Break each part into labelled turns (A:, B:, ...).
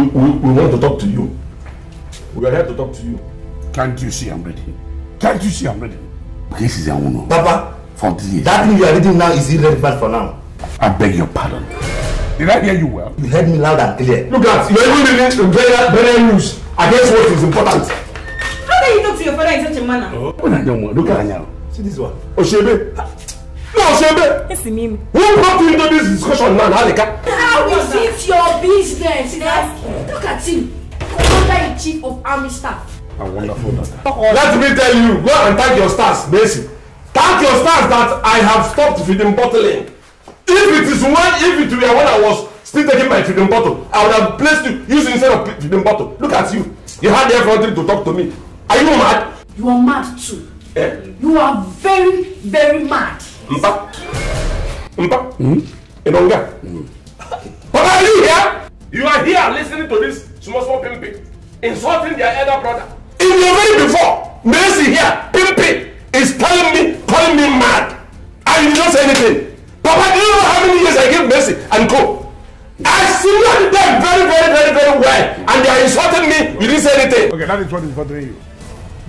A: we, we, we want to talk to you. We are here to talk to you.
B: Can't you see I'm ready?
A: Can't you see I'm ready? This is Awuno. Papa, for this year. That thing you are reading now is irrelevant for now. I beg your pardon. Did I hear you well? You heard me loud and clear. Look at, you're even reading very, very news against what is important.
C: How can you talk to your father in such a manner?
A: Oh, look at now. See this one. Oshebe.
C: No, Oshebe. Yes, me. Who brought you into
A: this discussion now, Alika?
C: Because it's your business. Look at him. Commander in chief of army staff.
A: A wonderful doctor. Let me tell you, go and thank your stars, Macy.
C: Thank your stars that
A: I have stopped feeding bottling. If it is when, if it were when I was still taking my feeding bottle, I would have placed you, used instead of feeding bottle. Look at you. You had everything to talk to me. Are you mad? You are mad too. Eh? You are very, very mad. Mpa. Mpa. Mm -hmm. Inonga. Mm -hmm. Baba, are you here? You are here listening to this small small pimping, insulting their elder brother. In the very before, Mercy here, pimping, is telling me, calling me mad. I did not say anything. Papa, do you know how many years I gave Mercy and go? I see them very, very, very, very well, and they are insulting me. You didn't say anything. Okay, that is what is bothering you.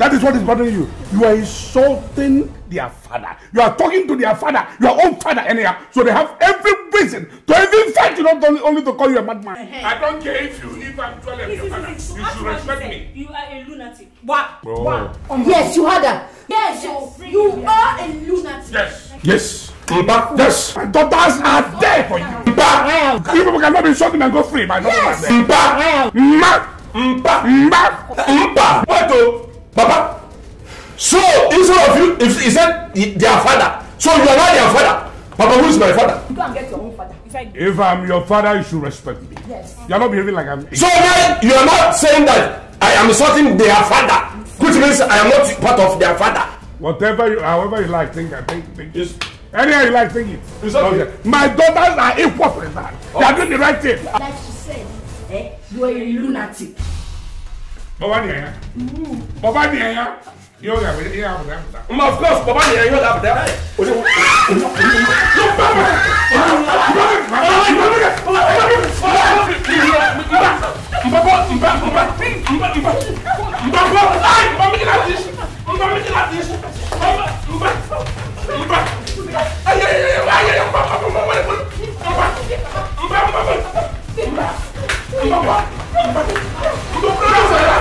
A: That is what is bothering you. You are insulting their father. You are talking to their father, your own father, anyhow. So they have every reason to even fight you, not only, only to call you a madman. Hey. I don't care if you, even I'm 12 and your father. You should respect me. You are a lunatic. What?
C: Oh. Oh. Yes, you had that. Yes, yes. you are a lunatic. Yes.
B: Yes. Iba, yes, my
A: daughters are there for you. Iba, you people cannot be shocking and go free. My daughters yes. are there. Iba, Mba, Mba, Mba, Mba. What though? Papa. So instead of you, if he said their father, so you are not their father. Papa, who is my father? Go and get your own father. If, I... if I'm your father, you should respect me. Yes. You are not behaving like I'm. So now you are not saying that I am insulting their father, which means I am not part of their father. Whatever, you, however you like, think, I think, think. Yes. Anyhow you like, think it. okay. My daughters are equal for that. Okay. They are oh. doing the right thing.
C: Like she said, eh, you are a lunatic
A: baba ni ẹyà baba ni ẹyà yóò yà wẹ yóò yà bùtà. ma of course baba ni ẹyà yóò yà bùtà. olè wò olè wò
C: yóò bá wà. Mbakɔ mba mba mba mba mbakɔ ayi mba mi kila di mba mi kila di mba mba mba ayi ayi ayi ayi ayi mba mba mba mba mba mba mba mba mba mba mba mba mba mba mba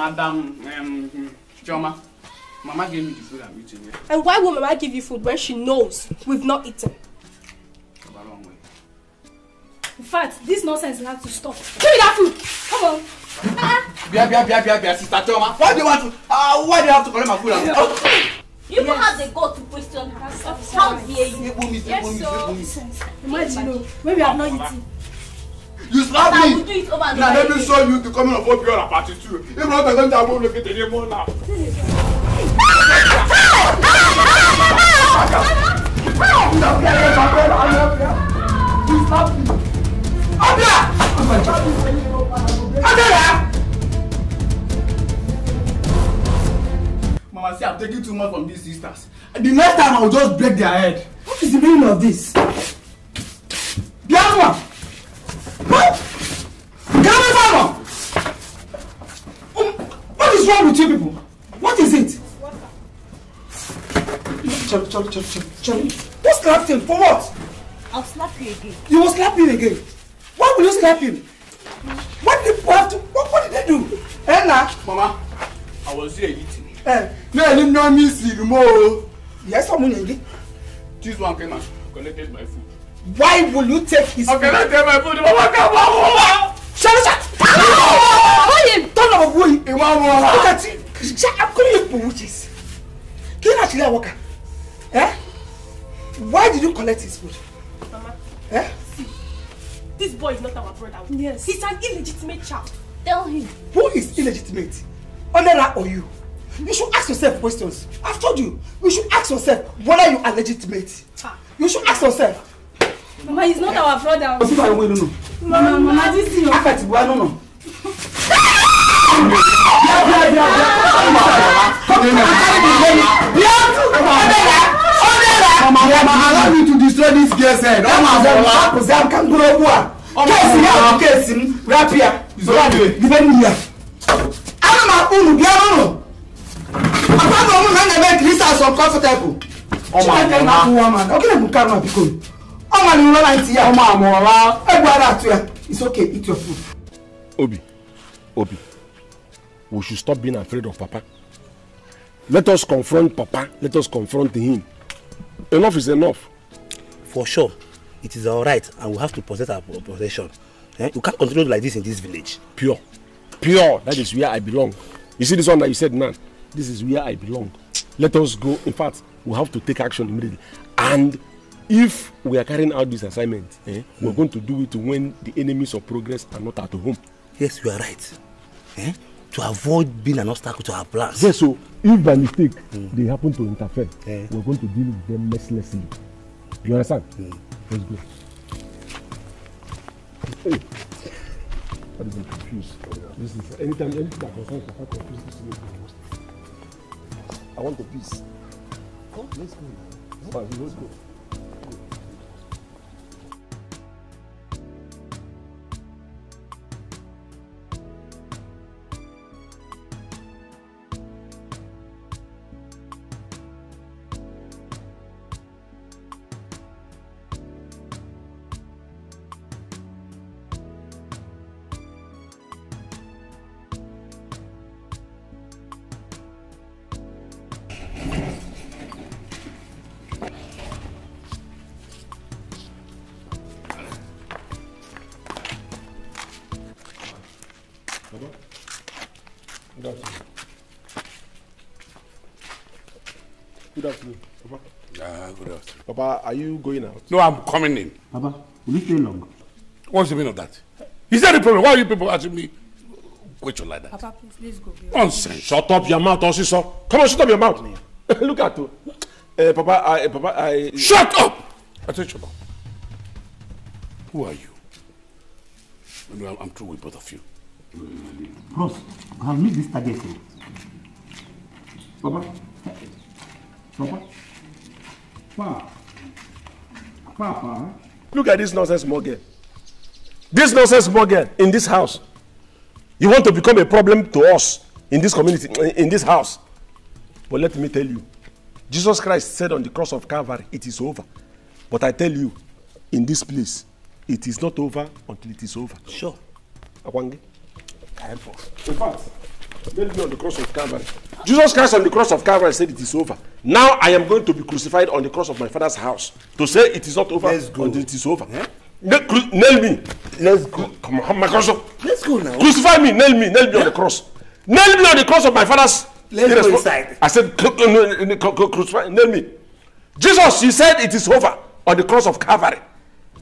A: Madam um, Joma, Mama gave me the food I'm eating here.
C: And why will Mama give you food when she knows
A: we've not eaten? A long
C: way. In fact, this nonsense will have to stop. Give me that food! Come on!
A: Ah. Bia, bia, bia, bia, bia, sister Joma. Why do you want to? Uh, why do you have to collect my food? Yeah. Oh.
C: You yes. have the go to question her. How dare you? Yes, sir. Imagine, when we have not eaten.
A: You slap me. I will
C: do it over and over again. Now let me show
A: you the coming of what pure apart is true. If not, I'm going to go look at the name now. You slap me. Abia! Abia! Mama, see, I'm taking too much from these sisters. The next time, I'll just break their head. What is the meaning of this? The other one! Mama! Um, what is wrong with you people? What is it? Chari, Chari, Chari, Chari. Who slapped him? For what?
C: I'll slap you again.
A: You will slap him again? Why will you slap him? What did people have to... What, what did they do? Ella. Mama, I was here eating. Eh, no, I didn't know me see more. Yes, I'm someone again. This one came and collected my food. Why will you take his okay, food? I take my food. Mama, come on, Mama! Shut up! Oye, turn up boy. Ìwà wọn. Look at it. Ṣé akúrò ipò witches? Kí ni àṣírí àwọn kà? Eh? Why did you collect his food? Mama. Eh?
C: See, this boy is not our brother. Yes. He's an illegitimate child. Tell him.
A: Who is illegitimate? Onera or you? You should ask yourself questions. I've told you. You should ask yourself whether you are legitimate. Ah. You should ask yourself.
C: Mama, he's not eh? our brother. Mama, Mama,
A: this is your. Afẹ́tìbúwa, no, no. Ọ Ọ Obi. Obi, we should stop being afraid of Papa. Let us confront Papa. Let us confront him. Enough is enough. For sure, it is all right and we have to possess our possession. Eh? We can't continue like this in this village. Pure. Pure. That is where I belong. You see this one that you said, man, this is where I belong. Let us go. In fact, we have to take action immediately. And if we are carrying out this assignment, eh, mm. going to do it when the enemies of progress are not at home. Yes, you are right eh? to avoid being an obstacle to our plans. Yes, so if by mistake mm. they happen to interfere, eh. we're going to deal with them mercilessly. You understand? Mm. Let's go. Hey, that is confused. This is anytime anything that concerns Papa confused this is I want the peace. Oh, let's go. Oh, let's go. Good afternoon. Good afternoon, Papa.
B: Ah, good afternoon.
A: Papa, are you going out? No, I'm coming in. Papa, will you stay long? What's the meaning of that? Is that the problem? Why are you people asking me question like
C: that? Papa, please,
A: please go. Nonsense. Shut up your mouth, Osiso. Come on, shut up your mouth. Look at you. Uh, Papa, I, eh, Papa, I. Shut up! I said, shut
B: Who are you? I
A: I'm, I'm through with both of you. Bros, we have missed this target. Papa. Papa. Papa. Papa. Eh? Look at this nonsense Morgan. This nonsense Morgan, in this house. You want to become a problem to us in this community, in this house. But let me tell you, Jesus Christ said on the cross of Calvary, it is over. But I tell you, in this place, it is not over until it is over. Sure. Awange time for. In fact, let me on the cross of Calvary. Jesus Christ on the cross of Calvary said it is over. Now I am going to be crucified on the cross of my father's house. To say it is not over Let's go. until it is over. Yeah? Nail me. Let's go. Come on, my cross. Let's go now. Crucify me, nail me, nail me yeah? on the cross. Nail me on the cross of my father's Let's go inside. I said, crucify, nail me. Jesus, you said it is over on the cross of Calvary.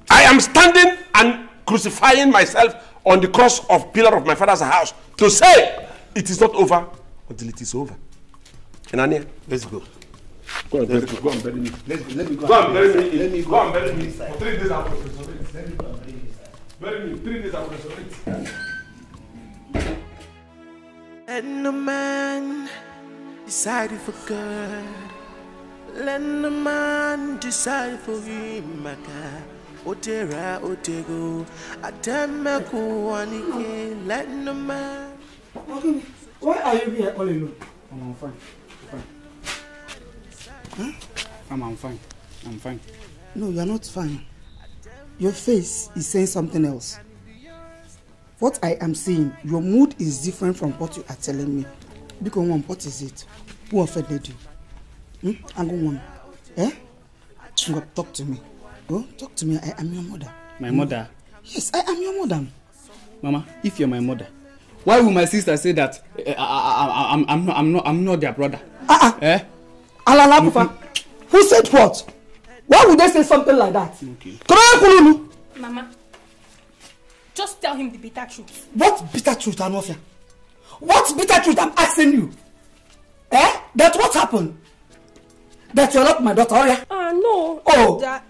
A: I am standing and crucifying myself on the cross of pillar of my father's house to say, It is not over until it is over. Enania, let's go. Go and bury me. Go and bury me. let me go, go and bury me. Let me go, go and bury me. For three days I will resurrect. Let me go and bury me. Bury me. Three days I will resurrect.
B: And the man decide for God. Let the man decide for him, my God. Odera Odego, Atemaku Wanike, Latin man. Okay, why are you here all alone? I'm fine. fine. Huh? Hmm?
A: I'm, I'm fine. I'm fine. No, you're not fine. Your face is saying something else. What I am saying, your mood is different from what you are telling me. Because one, what is it? Who offended you? Hmm? I'm going on. Eh? Talk to me. Oh, talk to me. I am your mother. My no. mother? Mm. Yes, I am your mother. Mama, if you're my mother, why would my sister say that uh, I, I, I'm, I'm, I'm, not, I'm not their brother? Uh-uh. Eh? Alala Pufa, who said what? Why would they say something like that?
C: Okay. Mama, just tell him the bitter truth.
A: What bitter truth, Anofia? What bitter truth I'm asking you? Eh? That what happened? That your lot, my daughter, oh yeah? Ah, uh, no. Oh.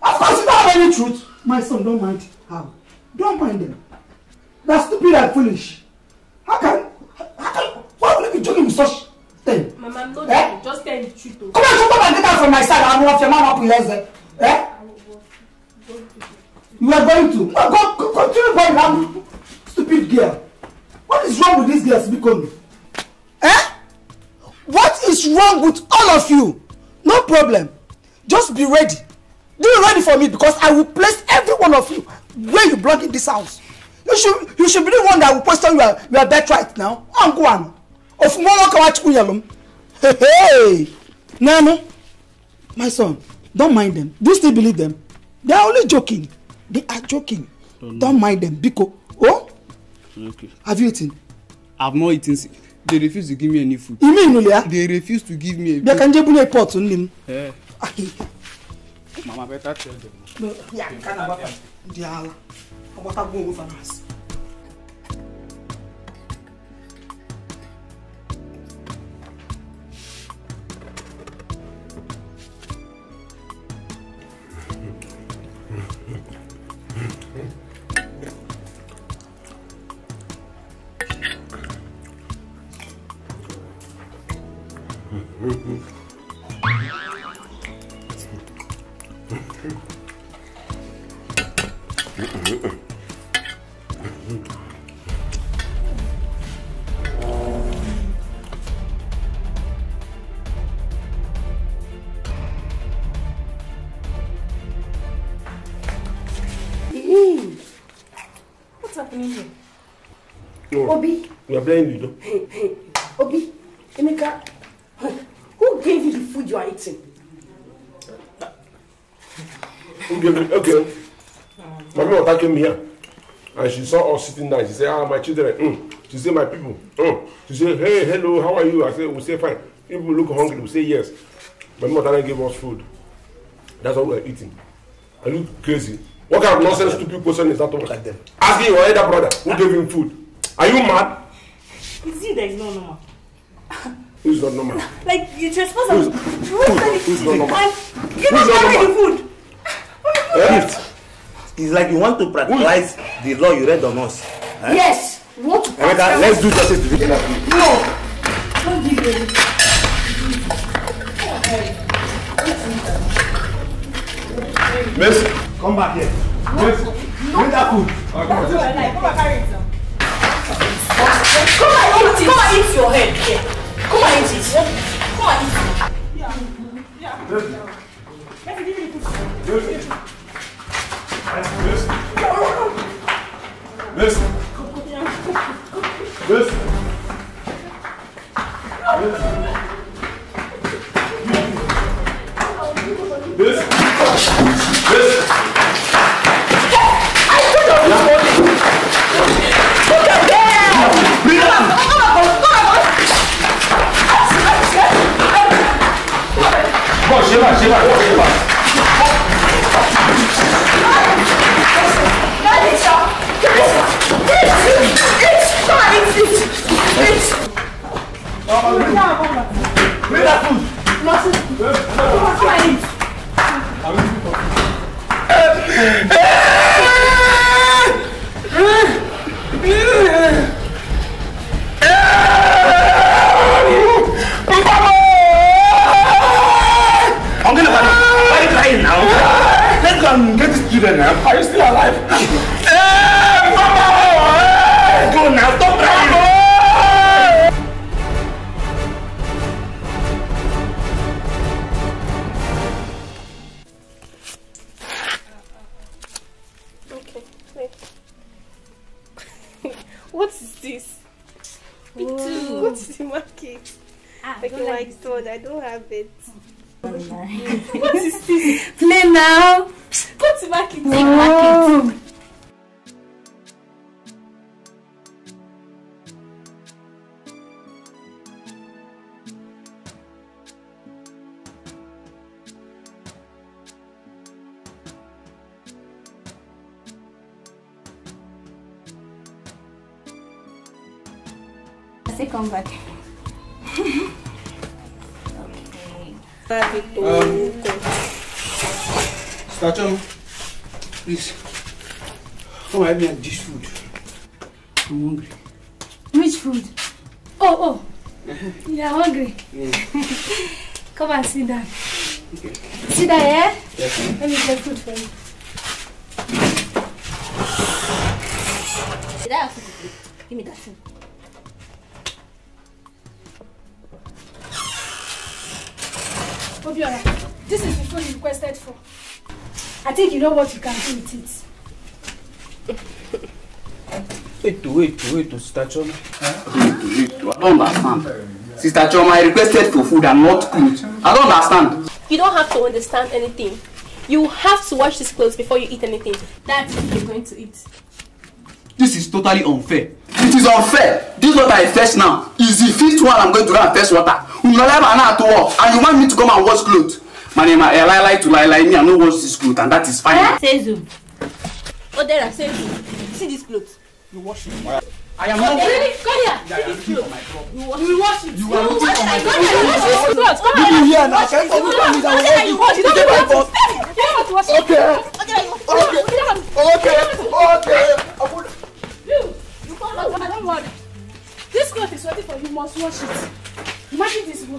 A: Of course, you don't have any truth. My son, don't mind how. Don't mind them. They're stupid and foolish. How can... How can... Why would you be joking with such
C: thing? Mama, I'm not eh? Just tell the truth. Though. Come on, come on, and get out from my side. I'm
A: off your mama up in there. Eh? You are going to. No, go, go, continue going. I'm stupid girl. What is wrong with this girl, Sibikomi? what is wrong with all of you no problem just be ready dey ready for me because i will place every one of you where you belong in this house you should you should be the one that will question your your right now ongwan ofunwonwo kawachukunyalom hey hey nanu my son don't mind them do you still believe them they are only joking they are joking don't, mind them biko oh okay. have you eaten. i have not eaten since they refuse to give me any food. ime inule ya. they refuse to give me. bịa ka nje bunye pot nne eh. m. mama better tell them. ya nke a na-agbata dị ala agbata gbuo onwe fa drying you down. Hey, Obi, Emeka, who gave you the food you are eating? Who gave it? Okay. Mommy Ota came here and she saw us sitting down. She said, ah, my children. Mm. She said, my people. Mm. She said, hey, hello, how are you? I said, we say fine. People look hungry, we say yes. My mother gave us food. That's what we are eating. I look crazy. What kind of nonsense stupid question is that? Like Asking your elder brother who gave him food. Are you mad?
C: It's you there is no normal. Who's not normal? Like you trespass on. Who's, who's, who's not normal? Give us back the food.
A: Gift. It's like you want to practice the law you read on us. Eh? Yes.
C: What? Emeka, let's do
A: justice to victim.
C: No. Don't give me.
A: Miss, come back here.
C: Miss, bring that food. Okay, Come and carry Come and eat it. Come and eat your head Come and eat it. Come and eat it. Yeah. Yeah. Let me the Listen. Listen. Listen. Listen. Listen. 好，我洗碗，洗碗，给我洗碗！快，赶紧抢，
A: children now. Are you still alive? hey, eh, Mama! Hey! Eh, go now, stop crying!
C: Okay. what is this? Whoa. Go to the market. Ah, like my like I don't have it. what is this? Play now! Sigma Kids. Sigma back. okay. Happy
B: Start Please. Come
A: help me and dish food. I'm hungry.
C: Which food? Oh, oh. Uh-huh. you are hungry? Yeah. Come and sit down. Okay. Sit down, eh? Yes. Let me get food for you. Did I have food? Give me that food. Obiola, this is the food you requested for. I think you know what you can do with
A: it. Wait, wait, wait, Sister Choma. Wait, wait, I don't
C: understand.
A: Sister Choma, I requested for food and not clothes. I don't understand.
C: You don't have to understand anything. You have to wash these clothes before you eat anything. That's what you're going to eat.
A: This is totally unfair. It is unfair. This water I fetch now is the fifth one I'm going to go and fetch water. Unalema now to walk, and you want me to come and wash clothes my name I lie lie to lie lie me I no wash this cloth and that is fine.
C: Sezu, Odera Sezu, see this cloth. You wash it. I am not. Come here. You wash it. You wash it. You are looking for my cloth. You wash this Come here. You here now? you come with you wash it. You don't want You wash it. Okay. okay, you Okay. Okay. Okay. You, you come back. Don't worry. This cloth is ready for you. Must wash it. Imagine this boy.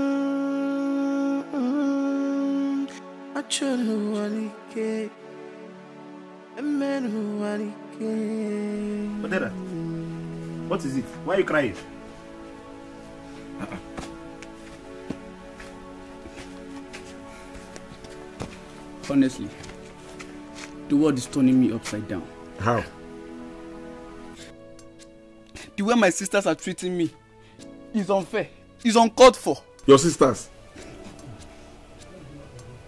B: achunu wanike emenu wanike.
A: Odera, what is it? Why are you crying? Honestly, the world is turning me upside down. How? The way my sisters are treating me is unfair, is uncalled for. Your sisters?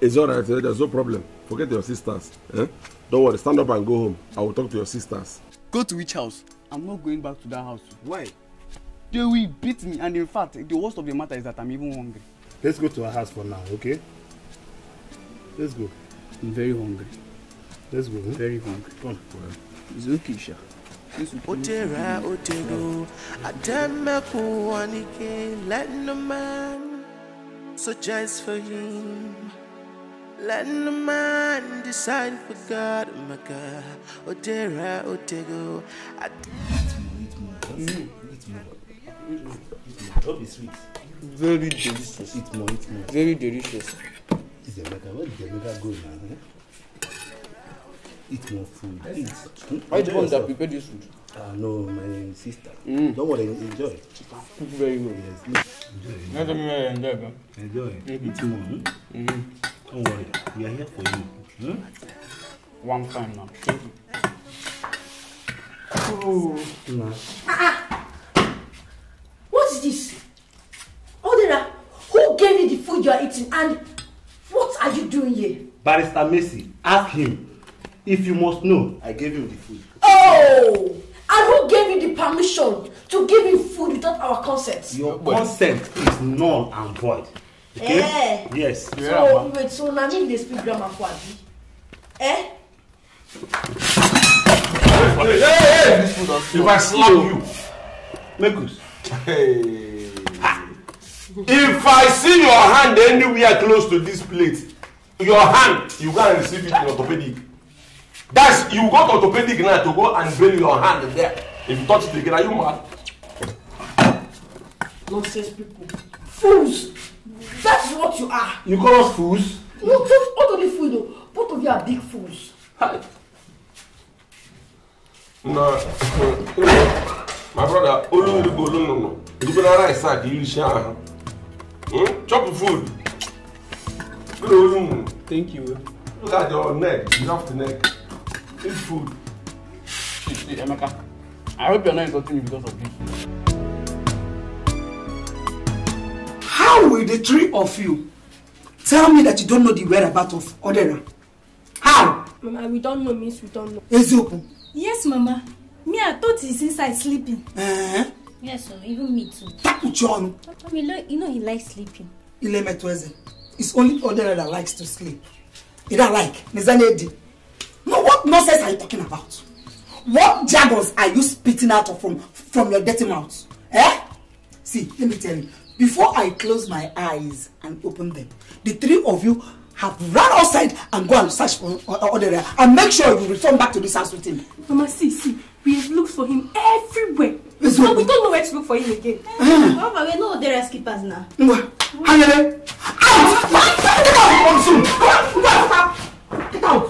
A: It's all right. Eh? There's no problem. Forget your sisters. Eh? Don't worry. Stand up and go home. I will talk to your sisters. Go to which house? I'm not going back to that house. Why? They will beat me, and in fact, the worst of the matter is that I'm even hungry. Let's go to her house for now, okay? Let's go. I'm very hungry. Let's go. Hmm? Very hungry. Come. Well. It's okay, Sha.
B: Otera, Otero, Adamaku, Anike, Latin a man, so just for him. Let the man decide for God, oh my God. Odera, Otego. I
C: Mm. Eat Eat more. Very
A: delicious. Eat more, eat more. Very delicious. the mega. the mega now? Eh? Eat more food. Eat. the one that prepared this food? Ah, no, my sister. Mm. Don't worry, enjoy. Cook very well. Yes. Enjoy. Enjoy. Enjoy. enjoy. Mm-hmm. enjoy. more. Hmm? Mm-hmm. Don't worry, we are here for you. Hmm? One time now. Thank you.
B: Oh. No.
A: Ah, ah. What's this? Odera, who gave you the food you are eating and what are you doing here? Barrister Macy, ask him. If you must know, I gave him the food. Oh! And who gave you the permission to give him food without our consent? Your consent is null and void.
C: Okay? Eh.
A: Yes. So
C: wait, so na me dey speak grammar for abi? Eh? Hey,
A: hey, hey. If I slap you, Mekus. Hey. If I see your hand anywhere close to this plate, your hand, you go and receive it in orthopedic. That's you go to orthopedic now to go and bury your hand there. If you touch it again, are you mad? Nonsense people. Fools! That's what you are. You call us fools? No, just not only fools, though. Both of you are big fools. Hi. Nah, my brother, Olu Olugo, no, no, no. You better right side, you shall. Hmm? Chop the food. Good Thank you. Look at your neck. You have the neck. Eat food. Emeka, I hope you're not insulting me because of this. How will the three of you tell me that you don't know the whereabouts of Odera?
C: How? Mama, we don't know means we don't know. Eziokwu? Yes, Mama. Me, I thought he's inside sleeping. Uh-huh. Yes, sir. Even me too.
A: Tapu John.
C: Mama, you know he likes sleeping.
A: Ilemetweze. It's only Odera that likes to sleep. He don't like. Nizanedi. No, what nonsense are you talking about? What jargons are you spitting out of from, from your dirty mouth? Eh? See, let me tell you. Before I close my eyes and open them, the three of you have run outside and go and search for uh, uh, Odere and make sure you return back to this house with him.
C: Mama, see, see, we have looked for him everywhere. It's no, we don't know where to look for him again. Eh. Mama, we know Odere skippers now. Hangele! Out! Get
A: out!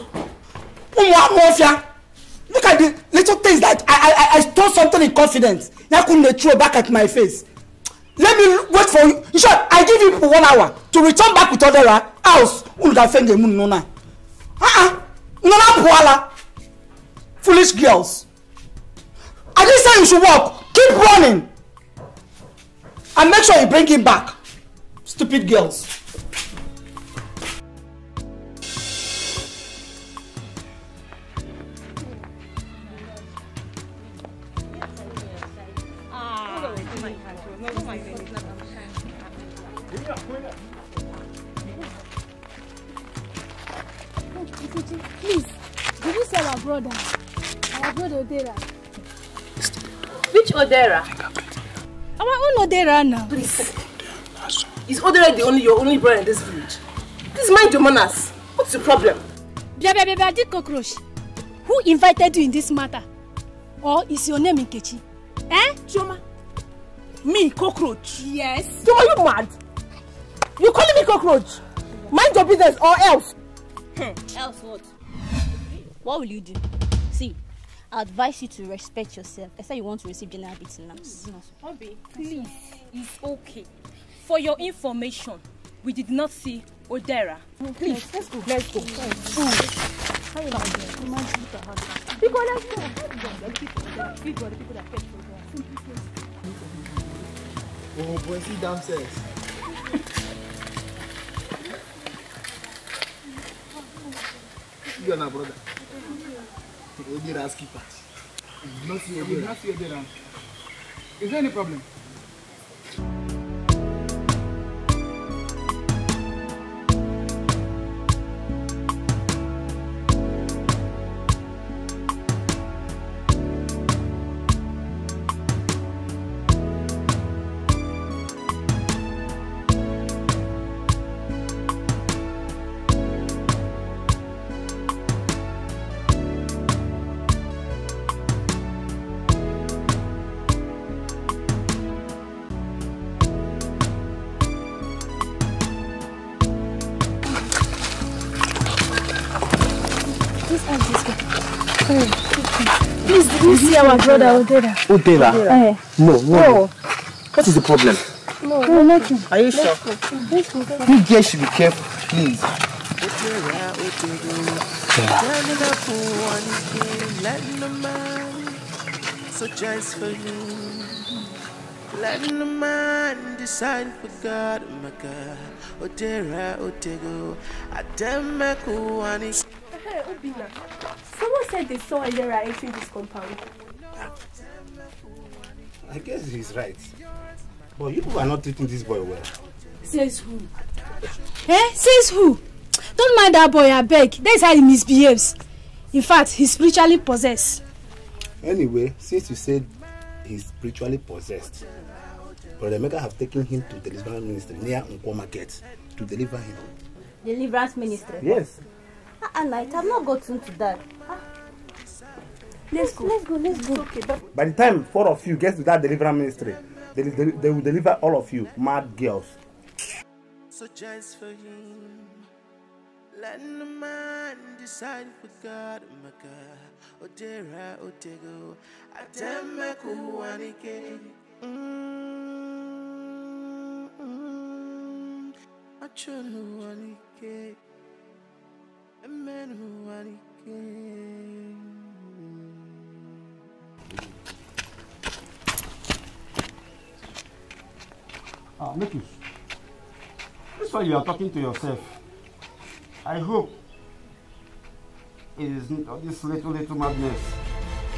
A: Get out! Get out! Look at the little things that I, I, I stole something in confidence. Now couldn't they throw back at my face let me wait for you in short i give you one hour to return back with other house olùdàfẹ́ǹdẹ̀ mú nínú náà ah nana buhala foolish girls i dey say you should work keep running and make sure you bring him back stupid girls.
C: brother. Our brother Odera. Which Odera? Our own Odera now.
A: Please. Is Odera the only your only brother in this village? Please mind your manners. What's the problem?
C: Bia bia did cockroach. Who invited you in this matter? Or is your name Nkechi? Eh? Choma? Me, cockroach?
A: Yes. Chioma, so you mad? You calling me cockroach? Mind your business or else.
C: else what? what will you do? See, I advise you to respect yourself. I said you want to receive general beating now. Obi, please, it's okay. For your information, we did not see Odera. Please, let's go. Let's go. let's go. Oh,
B: boy, see damn
A: You are not brother not Is there any problem?
C: see our brother No, no. What is the problem? No, no nothing. Are you sure?
B: You guys
A: should be careful, please.
B: Such as for you, letting the man decide for God, my God. Odera, Otego. Ademaku, and
C: Hey, Obina, someone said they saw Odera entering this compound.
B: I guess he's right. But you people
A: are not treating this boy well.
C: Says who? Eh? Says who? Don't mind that boy, I beg. That's how he misbehaves. In fact, he's spiritually possessed.
A: Anyway, since you said he's spiritually possessed, Brother Mega have taken him to the deliverance ministry near Unko Market to deliver him.
C: Deliverance ministry? Yes. Uh, ah, at ah, night, I've not gotten to that. Uh, Let's go. Let's go. Let's go. Okay, but
A: By the time four of you get to that deliverance ministry, they, they, they will deliver all of you, mad girls.
B: So just for you, let the man decide for God, my God. Odera, Odego, Atema Kuwanike. Achonu Wanike, Amen Wanike.
A: Ah, make you. This one you are talking to yourself. I hope it isn't this little, little madness.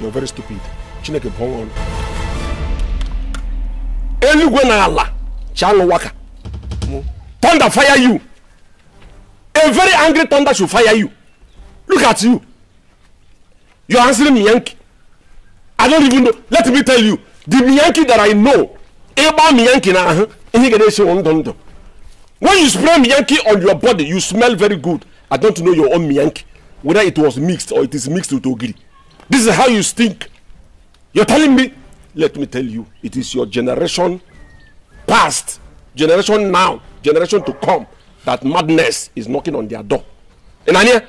A: You're very stupid. Chineke bụ ọnwụ eluigwe na Allah, chanụ waka hmm. thunder fire you a very angry thunder should fire you look at you you're answering me yankee I don't even know. Let me tell you, the Miyanki that I know, Eba Miyanki na uh-huh, When you spray Miyanki on your body, you smell very good. I don't know your own Miyanki, whether it was mixed or it is mixed with Ogiri. This is how you stink. You're telling me? Let me tell you, it is your generation past, generation now, generation to come, that madness is knocking on their door. And I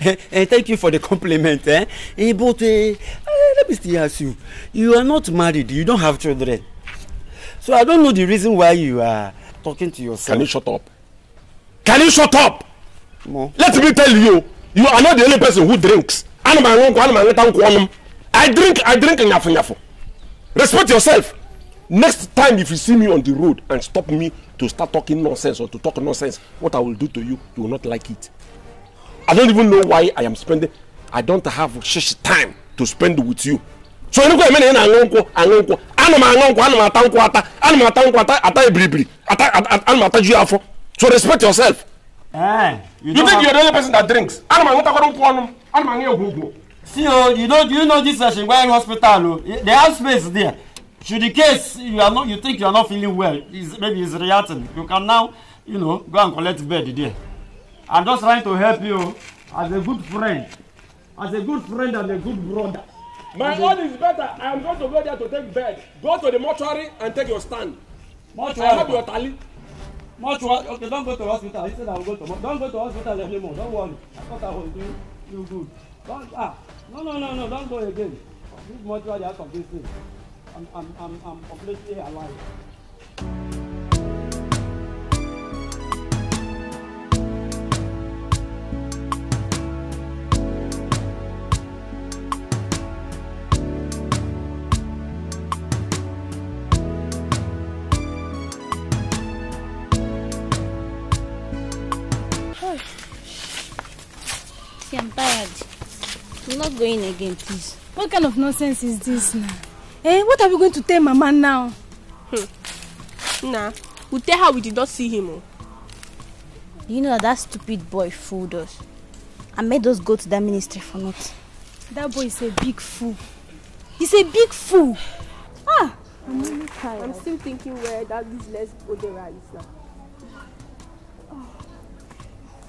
A: Eh, thank you for the compliment eh? eh but uh, let me still ask you you are not married you don't have children so i don't know the reason why you are talking to yourself. can you shut up can you shut up. No. let me tell you you are not the only person who drinks i drink i drink nyafu nyafu respect yourself next time if you see me on the road and stop me to start talking nonsense or to talk nonsense what i will do to you you will not like it. I don't even know why I am spending. I don't have such time to spend with you. So you know many aṅụ nkwụ aṅụ nkwụ ana m aṅụ nkwụ ana m ata nkwụ ata ana m ata nkwụ ata ata ebiribiri ata ana m ata ju afọ. So respect yourself.
C: Eh, you, think you are the only person
A: that drinks? Ana m aṅụtakwara nkwụ ọnụ m ana m aṅụ egwu ugwu. See o, you know you know this session hospital o, oh, they have space there. Should the case you are not you think you are not feeling well, is maybe is reacting, you can now you know go and collect bed there. I'm just trying to help you as a good friend, as a good friend and a good brother. My own is better. I am going to go there to take bed. Go to the mortuary and take your stand. Mortuary. I have your tally. Mortuary. Okay, don't go to hospital. He said I will go to. Don't go to hospital anymore. Don't worry. I thought I will do you good. Don't ah. No no no no. Don't go again. This mortuary has of this I'm I'm I'm I'm completely alive.
C: tired. I'm not going again, please. What kind of nonsense is this now? Eh, what are we going to tell Mama now? Hmm. Nah, we tell her we did not see him. Oh. You know that stupid boy fooled us. I made us go to that ministry for nothing. That boy is a big fool. He's a big fool. Ah! I'm really tired. I'm still thinking where that business Odera is now.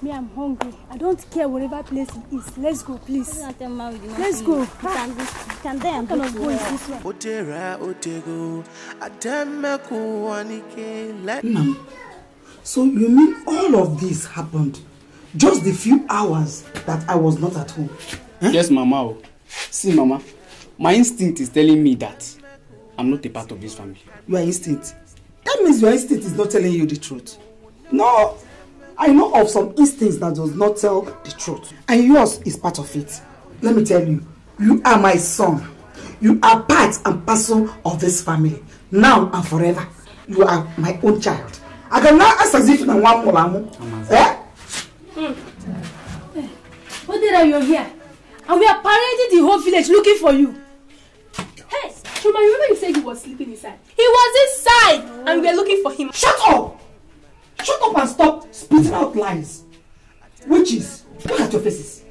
C: Me, I'm hungry. I don't care whatever place it is. Let's go, please. Let's go. You ah. can do, you go. Go
B: this one. so you mean all
A: of this happened just the few hours that I was not at home? Eh? Yes, Mama. See, Mama, my instinct is telling me that I'm not a part of this family. Your instinct? That means your instinct is not telling you the truth. No, I know of some instincts that does not tell the truth. And yours is part of it. Let me tell you, you are my son. You are part and parcel of this family. Now and forever. You are my own child. I can now ask as if you want more. Eh?
C: Hmm. eh? What did I you're here? And we are parading the whole village looking for you. Hey, Shuma, remember you said he was sleeping inside? He was inside!
A: Oh. And we are looking for him. Shut up! Shut up and stop spitting out lies. Witches, look at your faces.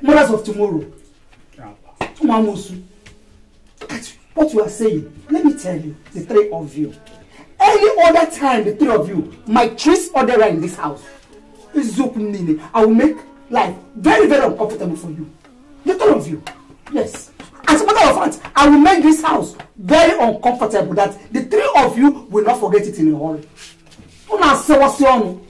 A: Mothers of tomorrow. Umamosu, look at what you are saying. Let me tell you, the three of you. Any other time, the three of you might trace other in this house. I will make life very, very uncomfortable for you. The three of you. Yes. As a matter of fact, I will make this house very uncomfortable that the three of you will not forget it in a hurry. Come on, say what's your own?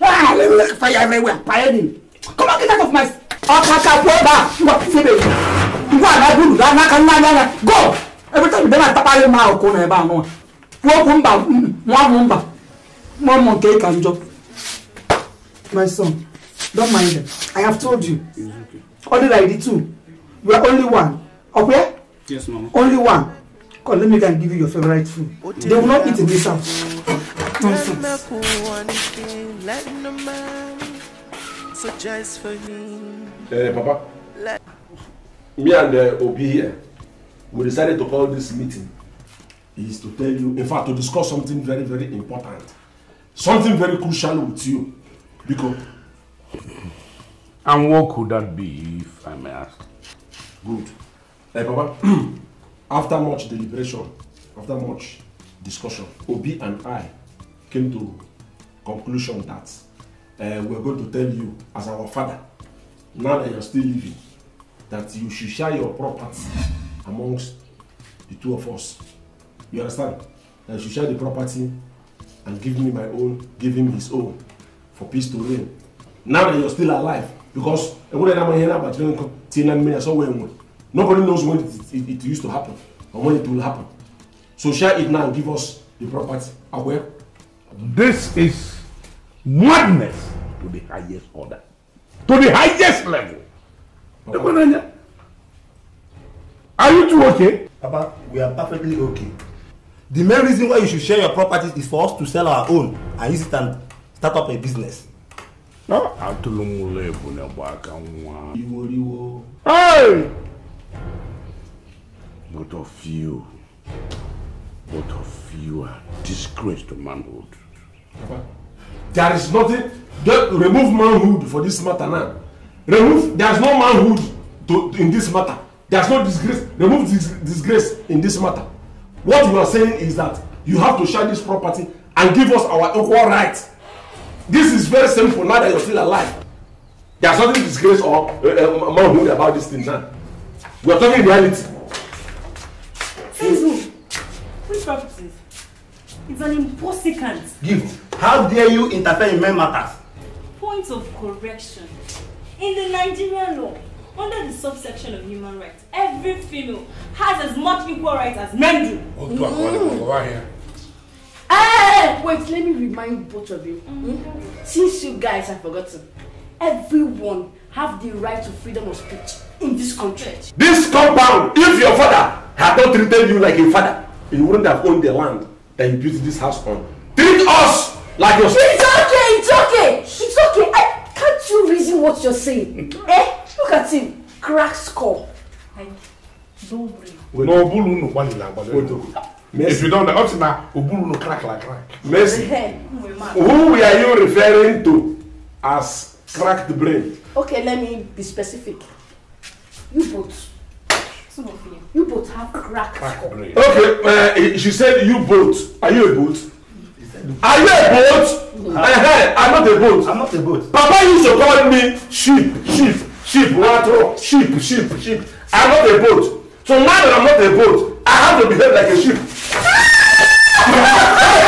A: Ah, let me fire everywhere. Fire him. Come on, get out of my. Akaka boba. You are pissing me. You are not good. That na na na Go. Every time you dem atapa your mouth, go na eba no. One kumba, One mm, mumba. One monkey can jump. My son, don't mind them. I have told you. Only like the two. You are only one. Okay? Yes, mama. Only one. Come, let me go and give you your favorite food. They will not eat in this house.
B: Nonsense. Hey, eh, Papa.
A: Me and eh, Obi here, we decided to call this meeting is to tell you, in fact, to discuss something very, very important. Something very crucial with you. Because. And what could that be, if I may ask? Good. Hey, eh, Papa. After much deliberation, after much discussion, Obi and I came to conclusion that uh, eh, we're going to tell you as our father, now that you're still living, that you should share your property amongst the two of us. You understand? That you should share the property and give me my own, give him his own, for peace to reign. Now that you're still alive, because eh, I have Nobody knows when it, it, it used to happen or when it will happen. So share it now and give us the property. Aware? Ah, This is madness to the highest order, to the highest level. Okay. Are you two okay? Papa, we are perfectly okay. The main reason why you should share your properties is for us to sell our own and use it and start up a business. No, atụrụ m ụlọ ebu na Hey! Both of you, both of you are disgraced to manhood. Papa, there is nothing. Don't remove manhood for this matter now. Remove. There is no manhood to, in this matter. There is no disgrace. Remove dis disgrace in this matter. What you are saying is that you have to share this property and give us our equal rights. This is very simple now that you're still alive. There's nothing disgrace or uh, manhood about this thing now. we are talking reality. Tinzu, which properties? It's an impossible Gift, how dare you interfere in men matters? Point of correction. In the Nigerian law, under the subsection of human rights, every
C: female has as much equal rights as men
A: do.
B: Oh, mm.
A: Hey,
C: wait, let me remind both of you. Mm. -hmm. Since you guys have forgotten,
A: everyone have the right to freedom of speech in this country. This compound, if your father had not treated you like a father, he wouldn't have owned the land that you built this house on. Treat us like your It's okay, it's okay,
C: it's okay. I, can't you reason what you're saying? eh? Look at him, crack skull. Like, don't
A: No, Obulu no one is Mercy. If you don't up to now, Obulu no crack like crack. Mercy. Who are you referring to as crack the brain.
C: Okay, let me be specific. You both. Some of you. You both have cracked crack brain.
A: Okay, uh, she said you both. Are you a boat?
C: Are you a boat? Uh-huh. I'm not a boat.
A: I'm not a boat.
C: Papa used to
A: call me sheep, sheep, sheep, water, sheep, sheep, sheep. I'm not a boat. So now that I'm not a boat, I have to behave like a sheep.
C: Ah!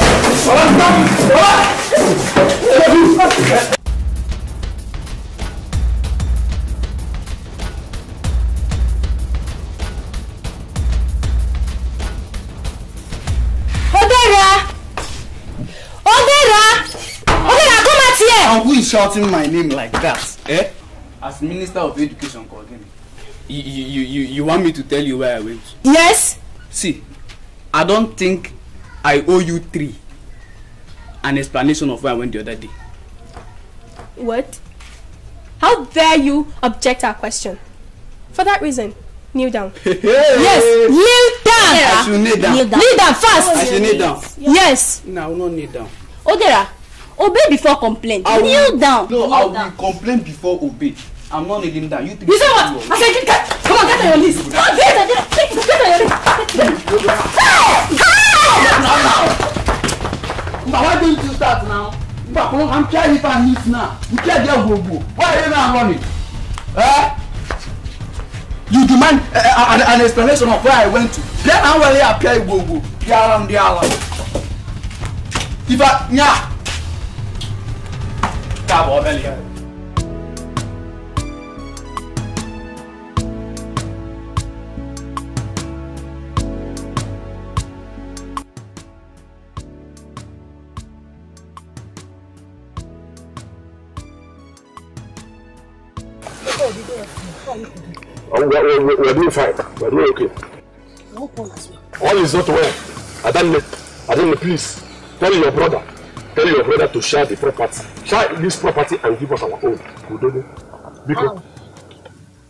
C: Odera, Odera,
A: Odera, come here. And who is shouting my name like that. Eh? As Minister of Education coordinator. You, you, you, you want me to tell you where I went? Yes. See, I don't think I owe you three an explanation of where I went the other day.
C: What? How dare you object our question? For that reason, kneel down. yes, kneel down. Yeah, I should kneel down. Kneel down, kneel down fast. I should kneel down. Yes. No, I will not kneel down. Odera,
A: obey before complain. I will, kneel down. No, kneel I will down. complain before obey. I'm not kneeling down. You think you say what?
C: I said, get, come on, get on your knees. Come on, get
A: on your list. Get on your list. Hey! Hey! But why didn't you start now? But I'm trying if I miss now. You can't get go go. Why are you now running? Eh? You demand uh, an, an explanation of where I went to. Then I will appear go go. The alarm, the alarm. If I, yeah. Come on, Elliot. Um, we, we, we, are doing fine. We are doing okay. All is not well. Adanne, Adanne, please tell your brother, tell your brother to share the property, share this property and give us our own. because. Wow.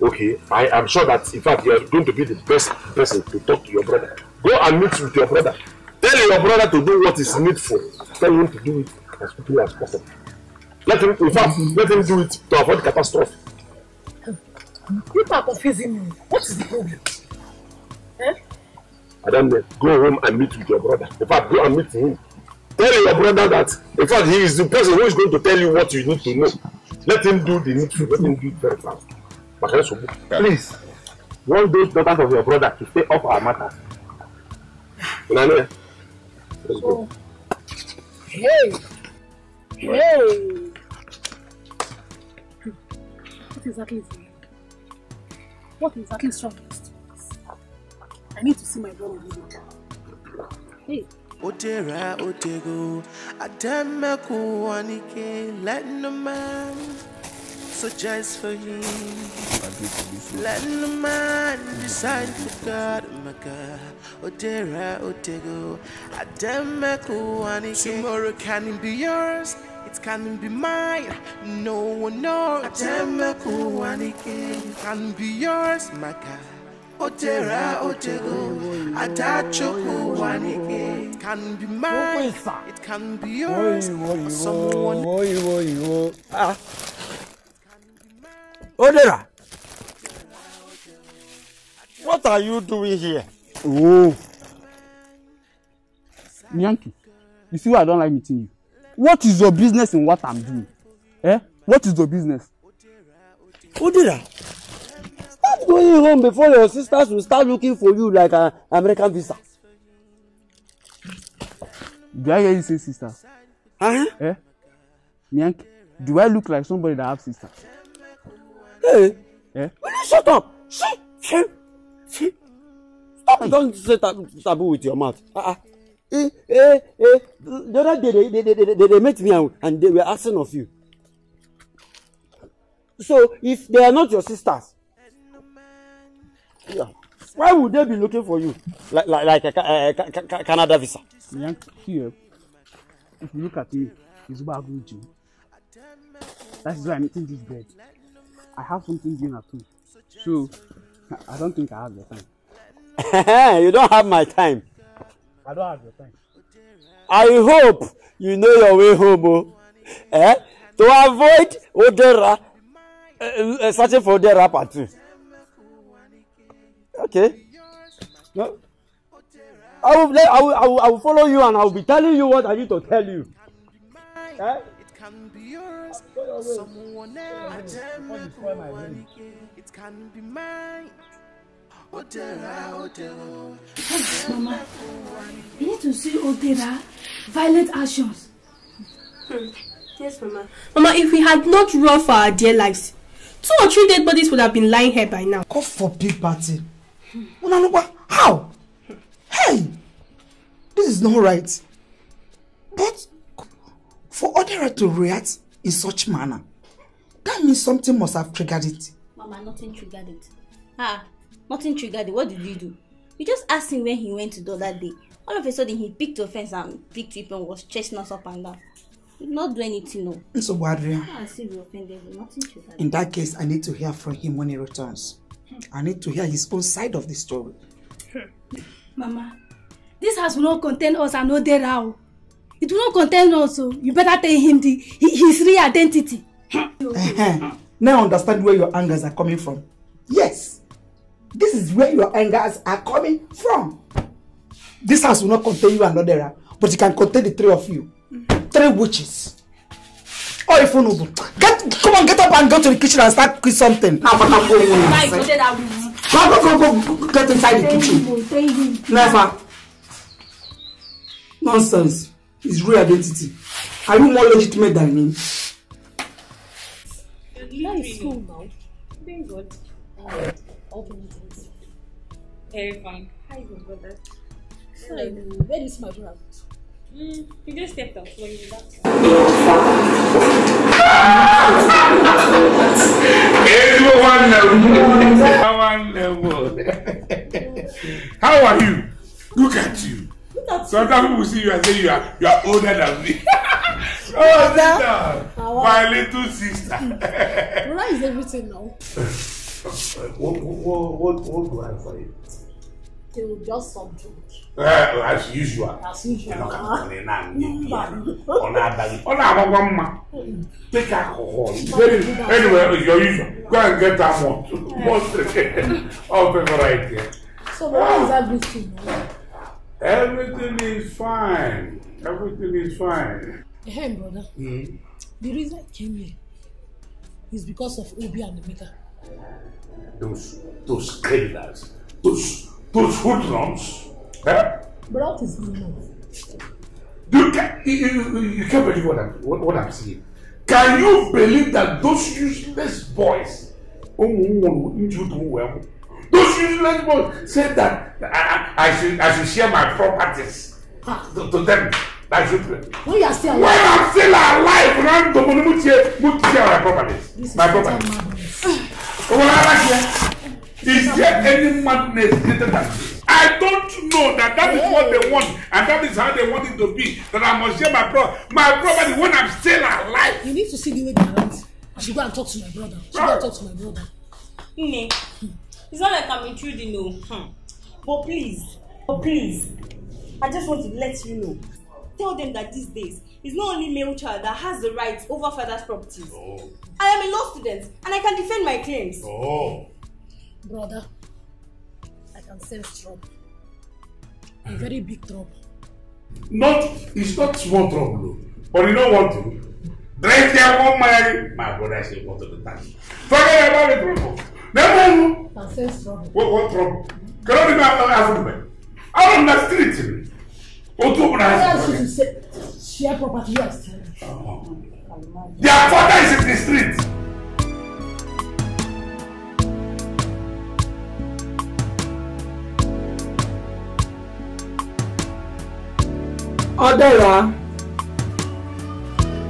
A: Okay, I am sure that in fact you are going to be the best person to talk to your brother. Go and meet with your brother. Tell your brother to do what is needful. Tell him to do it as quickly as possible. Let him, in fact, let him do it to avoid catastrophe. You are confusing me. What is the problem? Eh? Madam, eh, go home and meet with your brother. In fact, go and meet him. Tell your brother that, in fact, he is the person who is going to tell you what you need to know. Let him do the needful. Let him do it very fast. Please, want those daughters of your brother to stay off our matters. Unane, let's go. Hey! Hey!
C: What exactly
A: is it? What is exactly strongest? I need to see my
C: brother video.
B: Hey. Odera Odego Ademeku Wanike letting a man suggest for you. Letting a man decide for God, my God. Odera Ademeku Wanike Tomorrow can be yours. It can be mine, no one knows. It can be yours, my God. Otera Otego, Atachoko Wanike. It can be mine, it can be yours, or someone. Ah.
A: Odera. What are you doing here? Oh. Yankee, you see why I don't like meeting you what is your business in what i'm doing eh what is your business. Udira stop going home before your sisters will start looking for you like an American visa. Do I hear you say sister? Uh-huh. Eh? Nyank, do I look like somebody that have sister? Hey, eh? will you shut up? Shh, shh, shh. Stop, don't say taboo with your mouth. Uh-uh eh, eh, eh. The other day they, they, they, they, they met me and, and they were asking of you. So if they are not your sisters, yeah, why would they be looking for you like like, like a, a, a, a Canada visa? Yeah, here, if you look at me, it's about you. That is why I'm eating this bread. I have something doing at home, so I don't think I have the time. you don't have my time. I don't have your time. I hope you know your way home, oh. eh? To avoid Odera, uh, uh, searching for Odera part two. Okay. No. I will, I, will, I, will, I will follow you and I will be telling you what I need to tell you.
B: Eh? can be yours. Someone else. It
C: can be mine. Mama, you need to see Odera violent actions. Yes, Mama. Mama, if we had not run for our dear lives, two or three dead
A: bodies would have been lying here by now. God forbid, party. Unanuba, how? Hey, this is not right. But for Odera to react in such manner, that means something must have triggered it.
C: Mama, nothing triggered it. Ah, Nothing triggered it. What did you do? You just asked him where he went to the other day. All of a sudden, he picked fence and picked people and was chasing us up and down. He not do anything, no.
A: So, ah, Adrian, in that case, I need to hear from him when he returns. I need to hear his own side of the story.
C: Hmm. Mama, this house will not contain us and no Derao. It will not contain us, so you better tell him the, his real identity.
A: now I understand where your angers are coming from. Yes. This is where your angers are coming from. This house will not contain you and Odera, but it can contain the three of you. Three witches. Or if you get come on, get up and go to the kitchen and start cooking something. Now, but I'm going inside.
C: Go, go, go, go, get inside the kitchen.
A: Never. Nonsense. His real identity. Are you more legitimate than him?
C: now. Thank God. Uh, open it terrifying. How you brother. to go where is my brother? Mm, He just stepped out for you. That's
B: How are you?
A: Look at you. Sometimes people see you and say you are you are older than me. oh, sister, my little sister.
C: Where is everything now?
B: what, what, what, what do I find?
C: they will just subdue.
B: Uh, as usual.
C: As usual. Ẹnọ kan kan ní náà ní bí ya.
B: Ọ
A: na Take alcohol. Very anyway your usual. Go and get that one. Most of them right there. So what oh. is ah. everything? Everything is fine. Everything is fine. Hey, brother. Mm-hmm. The reason I came here is because of Obi and Emeka. Those, those criminals, those those hoodlums. Eh?
C: But what is going on?
A: You can you, you, you can't believe what I'm what, what I'm seeing. Can you believe that those useless boys, those useless boys said that I, I should I should share my properties to, to them. I should.
B: When you are still alive. When I'm still alive,
A: random, my properties.
B: My properties.
C: Well, I like
A: here. Is there any madness greater than this? I don't know that that is what they want and that is how they want it to be. That I must share my brother. my property when I'm still alive.
C: You need to see the way they act. I should go and talk to my brother. I should go and talk to my brother.
A: Nne, it's not like I'm intruding, no. Hmm. But please, but please, I just want to let you know. Tell them that these days, it's not only male child that has the rights over father's properties. Oh. I am a law student and I can defend my claims.
C: Oh. Brother, I can sense trouble. A very big trouble.
A: Not, it's not small trouble, but you know one thing. Drink there one marry. My brother say go to the taxi. Forget about the trouble. Never know.
C: can sense trouble.
A: What, what trouble?
C: Can I be after
A: Africa? I don't the street. What do you want to say? Share property yourself. Uh-huh. Their father is in the street. ọdẹra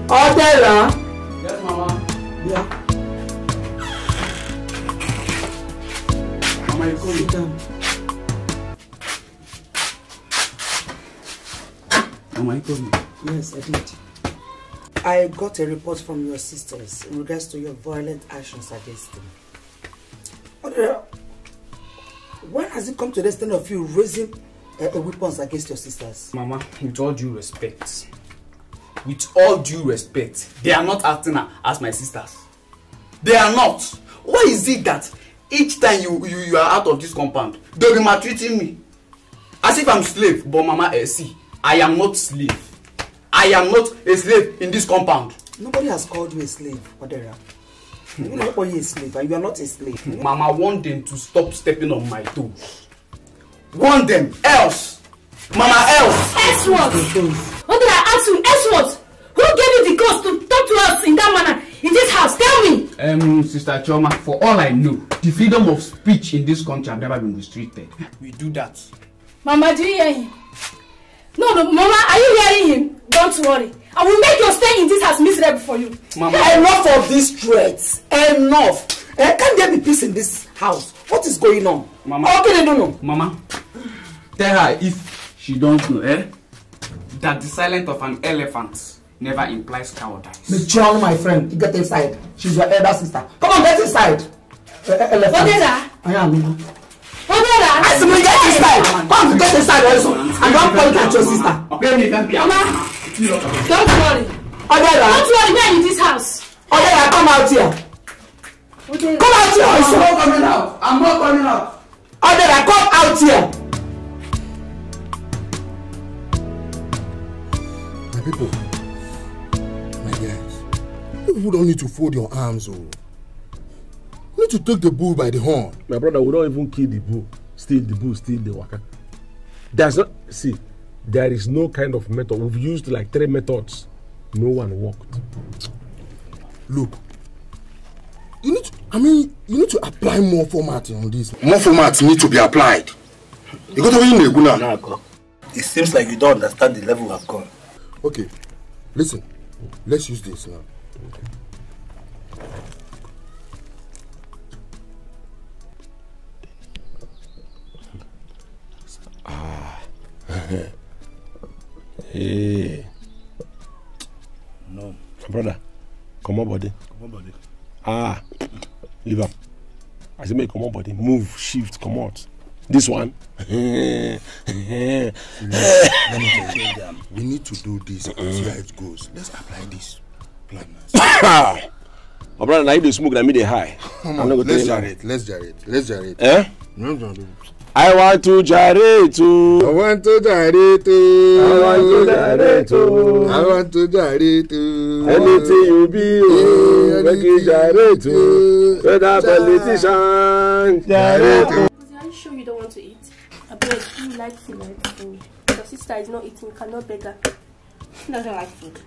A: ọdẹra. Yes, mama. Yeah. Mama, you come down. Mama, you told me. Yes, I did. I got a report from your sisters in regards to your violent actions against them. When has it come to the extent of you raising uh, weapons against your sisters. Mama, with all due respect, with all due respect, they are not acting as my sisters. They are not. Why is it that each time you you, you are out of this compound, they'll be treating me? As if I'm slave, but Mama, eh, see, I am not slave. I am not a slave in this compound. Nobody has called you a slave, Odera. Nobody is a slave, and you are not a slave. Mama, want them to stop stepping on my toes warn them else mama else.
C: else what what did i ask you else what who gave you the guts to talk to us in that manner in this house tell me.
A: Um, sister chioma for all i know the freedom of speech in this country have never been restricted. we do that.
C: mama do you hear him. no no mama are you hearing him don't worry i will make your stay in this house miserable for you.
A: mama enough of these threats
C: enough eh, can there
A: be peace in this house what is going on. mama how can you don't know. mama tell her if she don't know eh, that the silence of an elephant never implies cowardice. John, my friend, get inside. She's your elder sister. Come on, get inside.
C: Eh, eh, elephant. Odera.
A: I am. Odera. I said, get inside. Come to get inside also. And don't point at your sister. Mama,
C: don't worry. Odera. Don't worry, we are in this house. Odera,
A: come out here.
C: Come out here! I'm not coming out.
A: I'm not coming out. Order! come out here. My people, my guys, you don't need to fold your arms. Oh. You need to take the bull by the horn. My brother, we don't even kill the bull. Steal the bull, steal the waka. That's not, see, there is no kind of method. We've used like three methods. No one worked. Look, you need to, I mean, you need to apply more format on this. More formats need to be applied. You got to away in guna. It seems like you don't understand the level I've gone. Okay, listen. Let's use this now.
B: Ah. hey.
A: No. Brother, come on, buddy. Come on, buddy. Ah. leave him. I said, make come on, buddy. Move, shift, come out. This one. we, need, we need to do this. Uh See how it goes. Let's apply this
B: plan.
A: My brother, now you smoke, I me the high. Come on, let's jar it. Let's jar it. Let's jar it. Eh? I want to jare to. I want to jare to. I want to jare to. I want to jare to. Anything you be, oh, make it Jareto. Whether politician, Jareto.
C: Are you sure you don't want to eat? I beg, you like food, like Your sister is not eating, cannot beg her. She doesn't like food.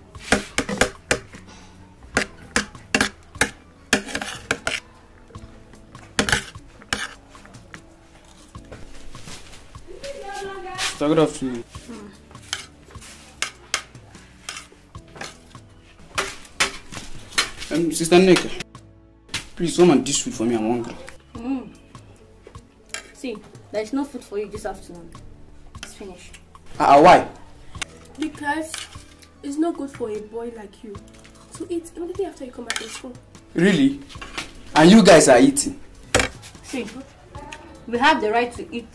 A: I'm off to Um, Sister Nick, please come and dish food for me. I'm hungry.
C: Mm. See, there is no food for you this afternoon. It's finished. uh, why? Because it's not good for a boy like you to eat immediately after you come back from school.
A: Really? And you guys are eating?
C: See, we have the right to eat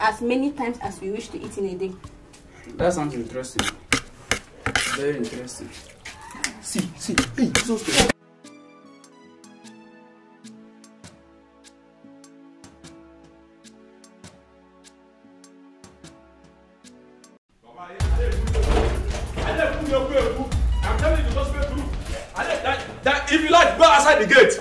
C: as many times as we wish to eat in a day.
A: That sounds interesting. Very interesting.
C: See, see, hey, so stupid.
A: If you like, go outside the gate.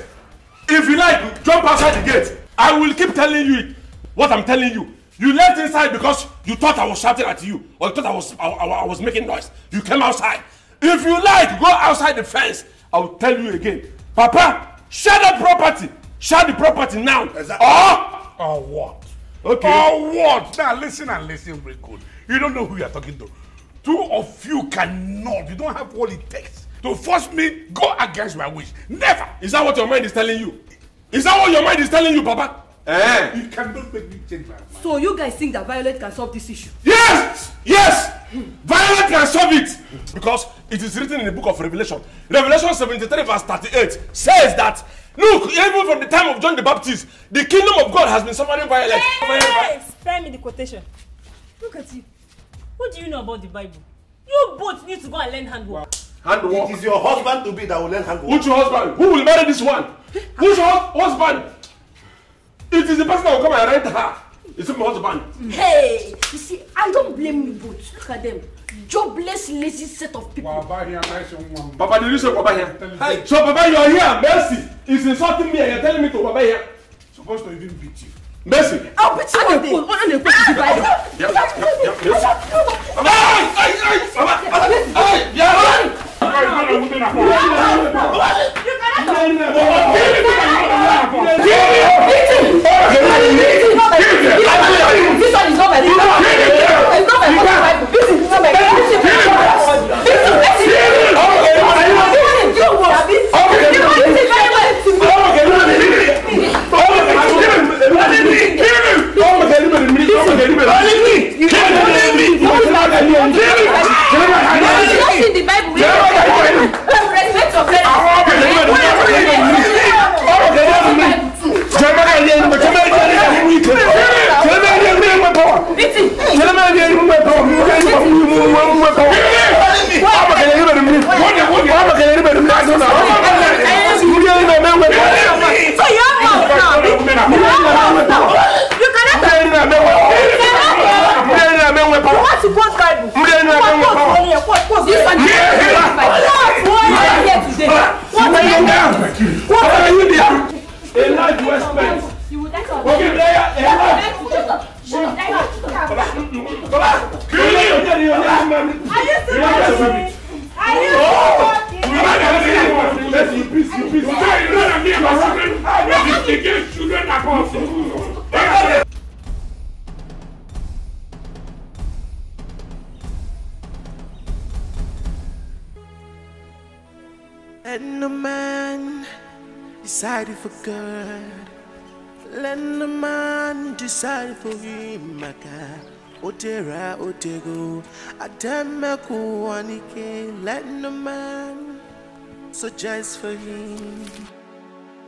A: If you like, jump outside the gate. I will keep telling you it, what I'm telling you. You left inside because you thought I was shouting at you or you thought I was I, I, I was making noise. You came outside. If you like, go outside the fence. I will tell you again. Papa, share the property. Share the property now. Exactly. Or, or what? Okay. Or what? Now listen and listen very good. You don't know who you are talking to. Two of you cannot. You don't have what it takes to force me go against my wish. Never. Is that what your mind is telling you? Is that what your mind is telling you, Papa? Eh. You cannot make me change my mind. So you guys think that Violet can solve this issue? Yes! Yes! Violet can solve it! Because it is written in the book of Revelation. Revelation 73 verse 38 says that Look, even from the time of John the Baptist, the kingdom of God has been suffering violence. Yes! Spare me the quotation. Look at you. What do you know about the Bible? You both need to go and learn handwork. Handwork? It is your husband to be that will learn handwork. Which husband? Who will marry this one? Which husband? It is the person that will come and arrest her. You It's my husband.
C: Hey, you see, I don't blame you both. Look at them. Jobless, lazy set of people. Baba here, nice woman.
A: Baba, did you say Baba here? Hey. So Baba, you are here. Mercy is insulting me and you're telling me to Baba here. Supposed to even beat you. Mercy. I'll beat you. I will. I 你。
B: maka otego let no man suggest for him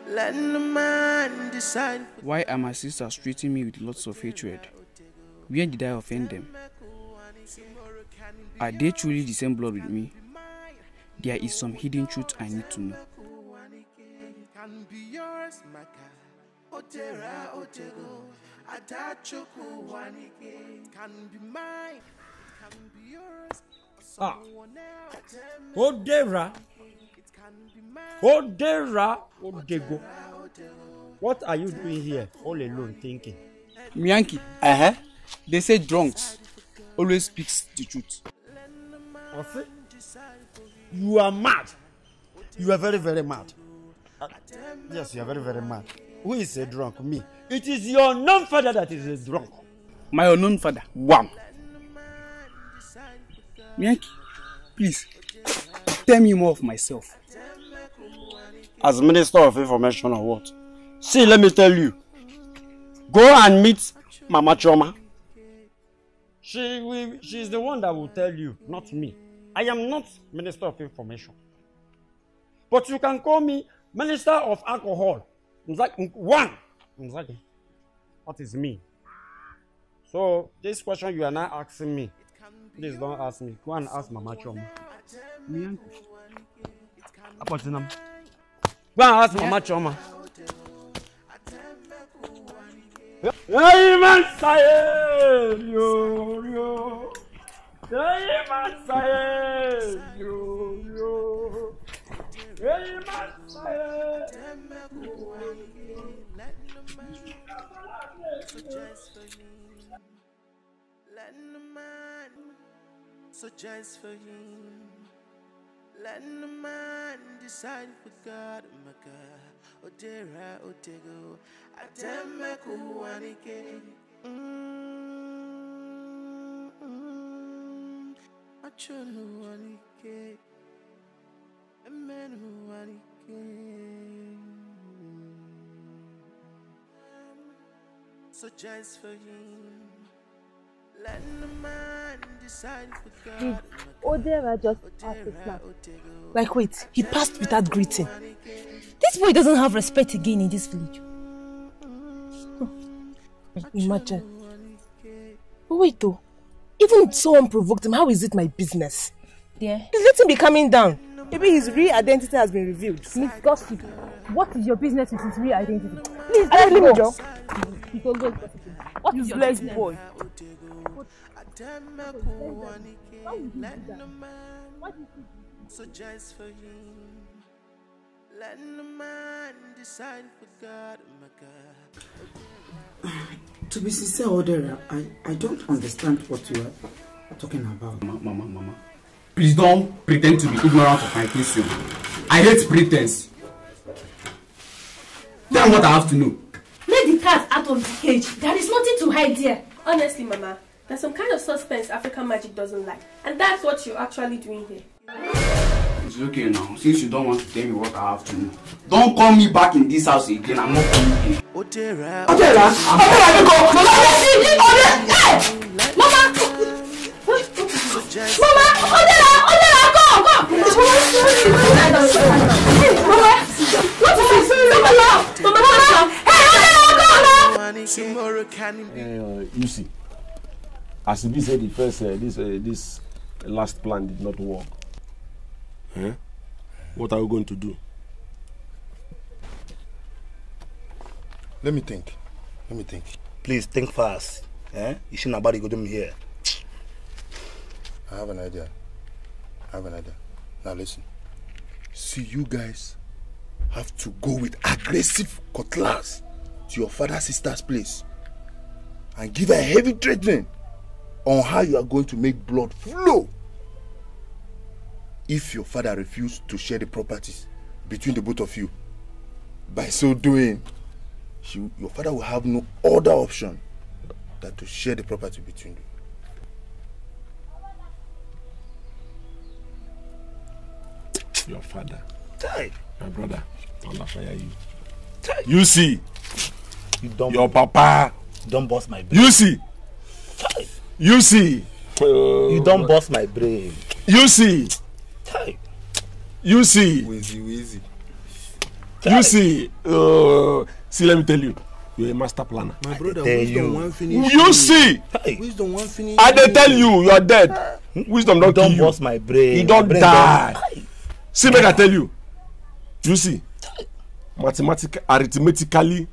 B: let no man decide
A: why are my sisters treating me with lots of hatred where did i offend them are they truly the same blood with me there is some hidden truth i need to know
B: can be yours, Maka. Otera, Otego. ah
A: ó dẹ́ra ó dẹ́ra ó dẹ́go what are you doing here all alone thinking. miyanki uh -huh. they say drunks always speaks the truth. ọ̀sẹ̀ you are mad you are very very mad uh, yes you are very very mad. Who is a drunk? Me. It is your known father that is a drunk. My unknown father? Wow. Yankee, please, tell me more of myself. As Minister of Information or what? See, let me tell you. Go and meet Mama Choma. She will, she is the one that will tell you, not me. I am not Minister of Information. But you can call me Minister of Alcohol Mzaki, one, Mzaki, what is me? So this question you are not asking me. Please don't ask me. Go and ask Mama Choma. Me uncle. Apotinam. Go and ask Mama Choma. Hey man, say yo yo. Hey man, say yo yo.
C: Hey man, say.
B: So just for him. Let the man decide for God, my God. Odera, Otego, Atema Kuwanike. Mm-hmm. Achonu Wanike. Amen Wanike. So just for him.
C: Odera just passed his
A: Like, wait, he passed without greeting. This boy doesn't have respect again in this village. Imagine. But wait though, even so unprovoked, him, how is it my business? Yeah. let him be coming down. Maybe his real identity has been revealed. Miss Gossip, what is your business with his real identity? Please, let him go.
C: What is your business? boy.
B: Suggest for him. Let the man decide for God, my
A: God. To be sincere, Odera, I, I don't understand what you are talking about. Mama, mama, mama. Please don't pretend to be ignorant of my question. I hate pretense. Tell what I have to know.
C: Let the cat out of the cage. There is nothing to hide here. Honestly, Mama, There's some kind of suspense African magic doesn't like. And that's what you're actually doing here.
B: It's okay
A: now. Since you don't want to tell me what I have to do, don't call me back in this house again. I'm not coming in. Otera.
C: Otera. Otera, you go. Mama, you see Hey! Mama! Mama! Otera! Otera, go! Go! Mama, what is this? Mama, Mama!
B: Hey, Otera, go! Mama! Tomorrow
A: You see as e said, the first uh, this uh, this last plan did not work eh? what are we going to do. let me think let me think. please think fast eh? ishinabari go do me here. i have an idea i have an idea now listen see you guys have to go with aggressive cutlass to your father sister's place and give her heavy treatment on how you are going to make blood flow if your father refuses to share the properties between the both of you. By so doing, she, your father will have no other option than to share the property between you. Your father. Ty. Your brother. don't fire you. Ty. You see. You don't, your papa. Don't boss my baby. You see. Die you see. Uh, you don burst my brain. you see. you see. wheezy wheezy. you see. Uh, see let me tell you you're a master planner. my brother wisdom wan finish you. you see.
B: wisdom wan finish i dey
A: tell you you are dead. wisdom don kill you. you don burst my brain. you don die. see make i tell you you see mathematically arithmetically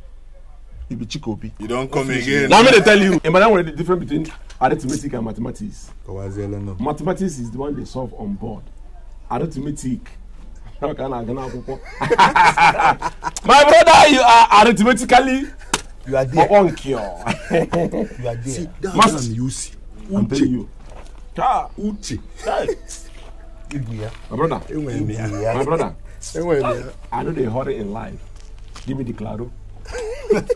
A: you be chikobi. you don come again. na me dey tell you. emma that one dey different between arithmetic and mathematics. mathematics is the one they solve on board arithmetic my brother you are arithmetically you are there on cure you are there see that Mas man you see uche you ah uche my brother my brother i know they hurry in life give me the claro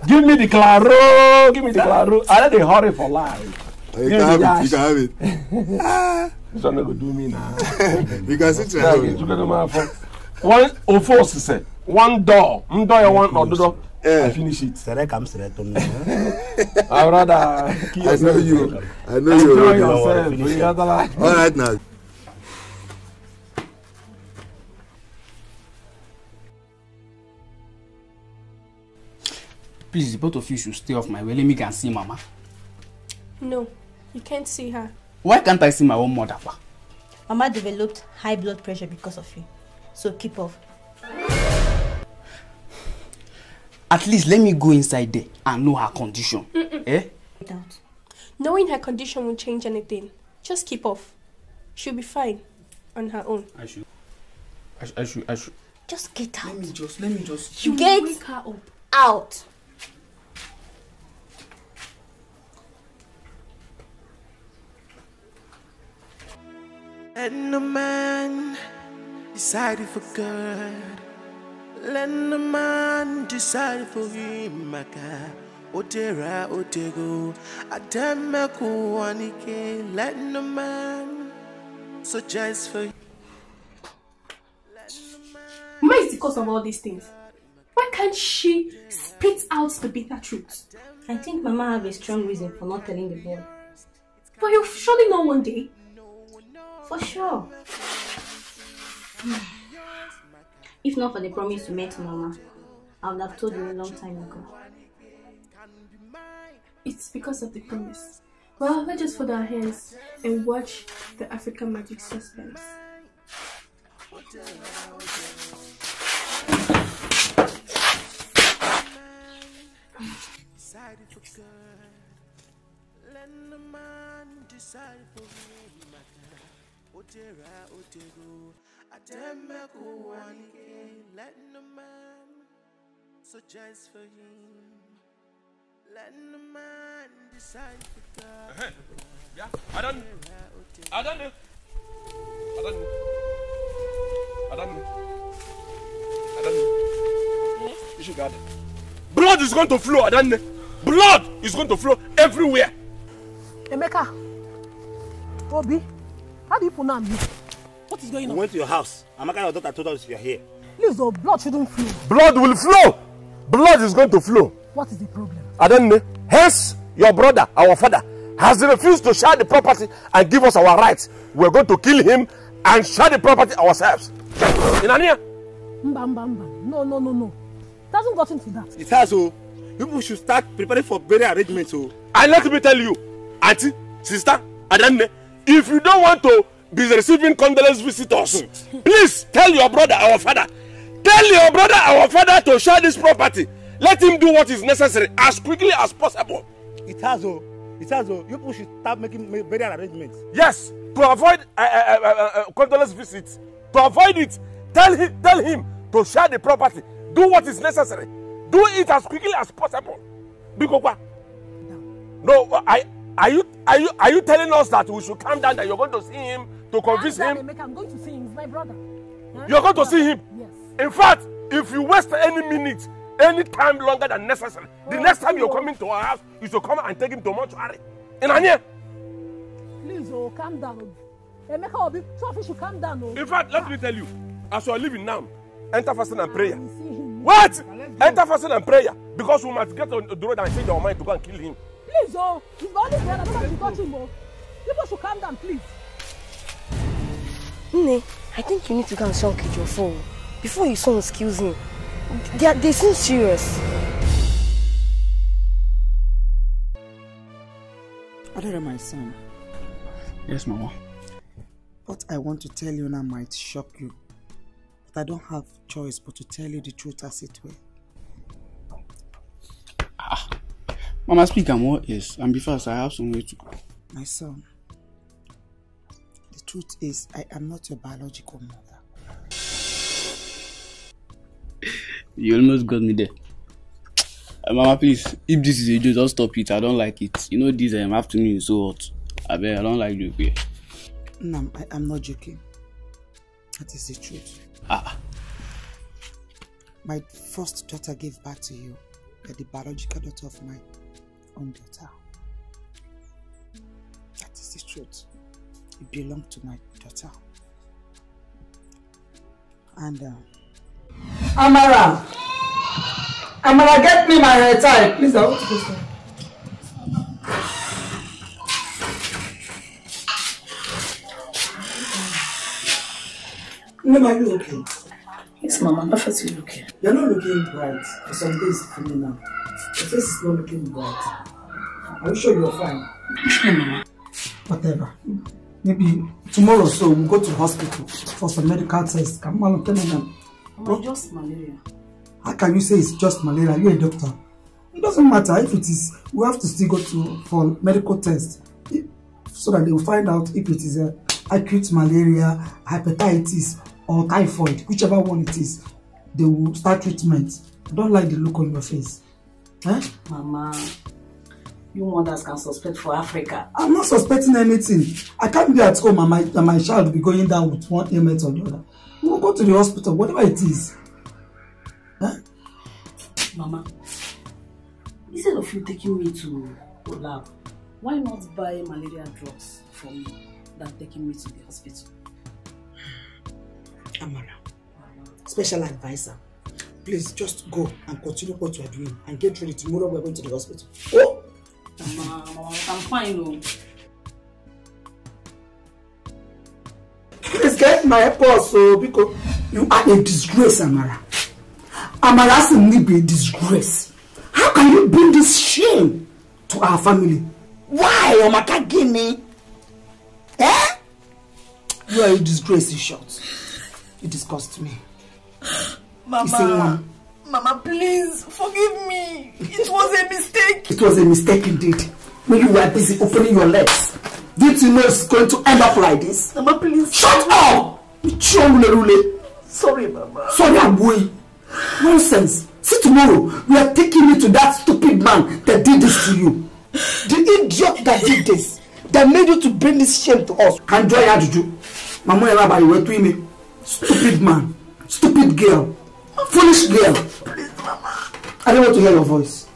A: give me the claro give me the claro i know they hurry for life You can have it. You can have it. This one go do me now. You can sit there. You can do my phone. One of us say one door. One door. One door. Yeah. Eh. I finish it. Sere kam sere to me. I rather I know you. I know you. Enjoy yourself. You gotta All right now. Please, both of you should stay off my way. Let me go and see Mama.
C: No. You can't see her.
A: Why can't I see my own mother?
C: Mama developed high blood pressure because of you. So keep off.
A: At least let me go inside there and know her condition. Mm -mm. Eh?
C: Without. Knowing her condition won't change anything. Just keep off. She'll be fine on her own. I should.
A: I should. I should. I should.
C: Just get out. Let me just. Let me just. You get her up. out.
B: Let no man decide for God. Let no man decide for him, my God. Otera, Otego, Atemaku, Anike. Let no man suggest for him.
C: Mama is the cause of all these things. Why can't she spit out the bitter truth? I think Mama have a strong reason for not telling the boy. But you'll surely know one day. For sure. if not for the promise you made to Mama, I would have told you a long time ago. It's because of the promise. Well, let's just fold our hands and watch the African magic suspense.
B: ó dẹ̀ra ó dẹ̀rọ àtẹ̀mẹ́kù wà níkẹ́ let no man so just for him let no man decide for God. Uh -huh. Yeah, I don't,
A: I don't know, I hmm? You should guard Blood is going to flow, I Blood is going to flow everywhere. Emeka, Obi. How do you pronounce me? What is going on? We went to your house. Amaka, your daughter told us you are here. Please, your blood shouldn't flow. Blood will flow. Blood is going to flow.
C: What is the problem?
A: I don't know. Hence, your brother, our father, has refused to share the property and give us our rights. We're going to kill him and share the property ourselves.
C: Inania? Mba, mba, mba. No, no, no, no. It hasn't gotten to that. It
A: has, oh. People should start preparing for burial arrangements, oh. And let me tell you, auntie, sister, Adanne, if you don't want to be receiving condolence visitors please tell your brother our father tell your brother our father to share this property let him do what is necessary as quickly as possible. it has o it has o you people should start making burial arrangements. yes to avoid uh, uh, uh, uh, condolence visits to avoid it tell him tell him to share the property do what is necessary do it as quickly as possible. bikokwa no i Are you are you are you telling us that we should calm down that you're going to see him to convince I'm him? Emeka, I'm going to see him. my brother. Huh? You're going to see him. Yes. In fact, if you waste any minute, any time longer than necessary, oh, the next time you're coming to our house, you should come and take him to mortuary. In Anya.
C: Please, oh, calm down. Oh. Emeka Obi, Sophie should calm down. Oh. In fact, let
A: me tell you, as you are leaving now, enter fasting and prayer.
C: What?
A: Enter fasting and prayer because we must get on the road and change our mind to go and kill him. Please, oh, he's the only don't Nobody to touch him, oh. People should calm down, please.
C: Nne, I think you need to go and show your phone before you son kills him. They, are, they seem serious.
A: Adara, my son. Yes, Mama. What I want to tell you now might shock you. But I don't have choice but to tell you the truth as it were. Ah, Mama, speak and what else? And be fast, I have somewhere to go. My son, the truth is, I am not your biological mother. you almost got me there. Uh, Mama, please, if this is a joke, just stop it. I don't like it. You know, this um, afternoon is so hot. I bet I don't like you here. No, I, I'm not joking. That is the truth. Ah. My first daughter gave birth to you, the biological daughter of mine own daughter. That is the truth. It belonged to my daughter. And uh, Amara! Amara, get me my hair tie. Please, I want to go sir. Mama, are you okay?
C: Yes, Mama, I'm perfectly okay.
A: You're not looking bright for some days coming up. Your face is not looking bright. Are you sure you're fine? Mama. Whatever. Maybe tomorrow so we'll go to the hospital for some medical tests. Come on, tell me now. Mama, just malaria. How can you say it's just malaria? You're a doctor. It doesn't matter if it is. We have to still go to for medical tests so that they will find out if it is a uh, acute malaria, hepatitis, or typhoid, whichever one it is. They will start treatment. I don't like the look on your face. Eh?
C: Mama, you mothers can suspect for Africa.
A: I'm not suspecting anything. I can't be at home and my, and my child will be going down with one ailment or the other. We'll go to the hospital, whatever it is. Huh? Mama,
C: instead of you taking me to
A: lab, why not buy malaria drugs for me than taking me to the hospital? Amara, special advisor, please just go and continue what you are doing and get ready tomorrow we're going to the hospital.
C: Oh! I'm fine o.
A: Oh. Please get my purse o oh, biko. You are a disgrace, Amara. Amara Simni be a disgrace. How can you bring this shame to our family? Why, Amaka Gini? Eh? You are a disgrace, in short. You disgust me. Mama.
B: Mama, please forgive me. It was a mistake.
A: It was a mistake indeed. When you were busy opening your legs. Did you know it's going to end up like this? Mama, please. Shut up! Sorry,
B: Mama. Sorry,
A: Abui. Nonsense. See, tomorrow, we are taking you to that stupid man that did this to you. The idiot that did this, that made you to bring this shame to us. Can joy add you? Mama, you're to me. Stupid man. Stupid girl. Foolish girl. Please, Mama. I don't want to hear your voice.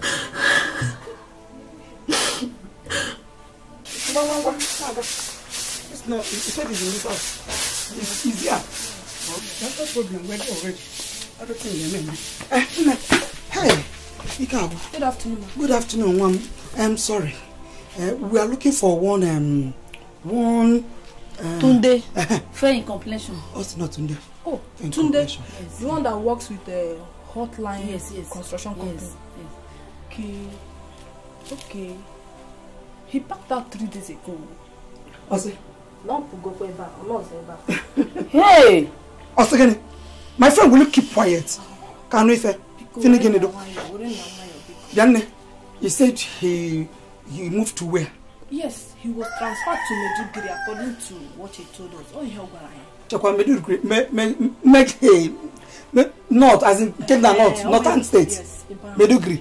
A: Mama, Mama, it's not, you said it's in this house. It's easier. That's the problem, we're already. I don't think you're meant. Eh, hey, Ikawa. Good afternoon, Mama. Good afternoon, Mom. I'm sorry. Uh, we are looking for one, um,
C: one Tunde. Fair in complexion. Oh, not Tunde. Oh, Fair Tunde. Yes. The one that works with the uh, hotline yes, yes. construction company. Yes, yes.
A: Okay. Okay. He packed out three days ago. Ose.
C: Lump go for Eba. Olorun Eba.
A: Hey! Ose gini. My friend, will you keep quiet? Kanu Ife. Fini gini do. Yanne, he said he he moved to where?
C: Yes, he was transferred to Meduguri according to what he told us. Oh, yeah, Ogwara.
A: Chekwa Meduguri, me, me, make a, eh, north, as in, take eh, north, uh, northern state. Yes, Meduguri.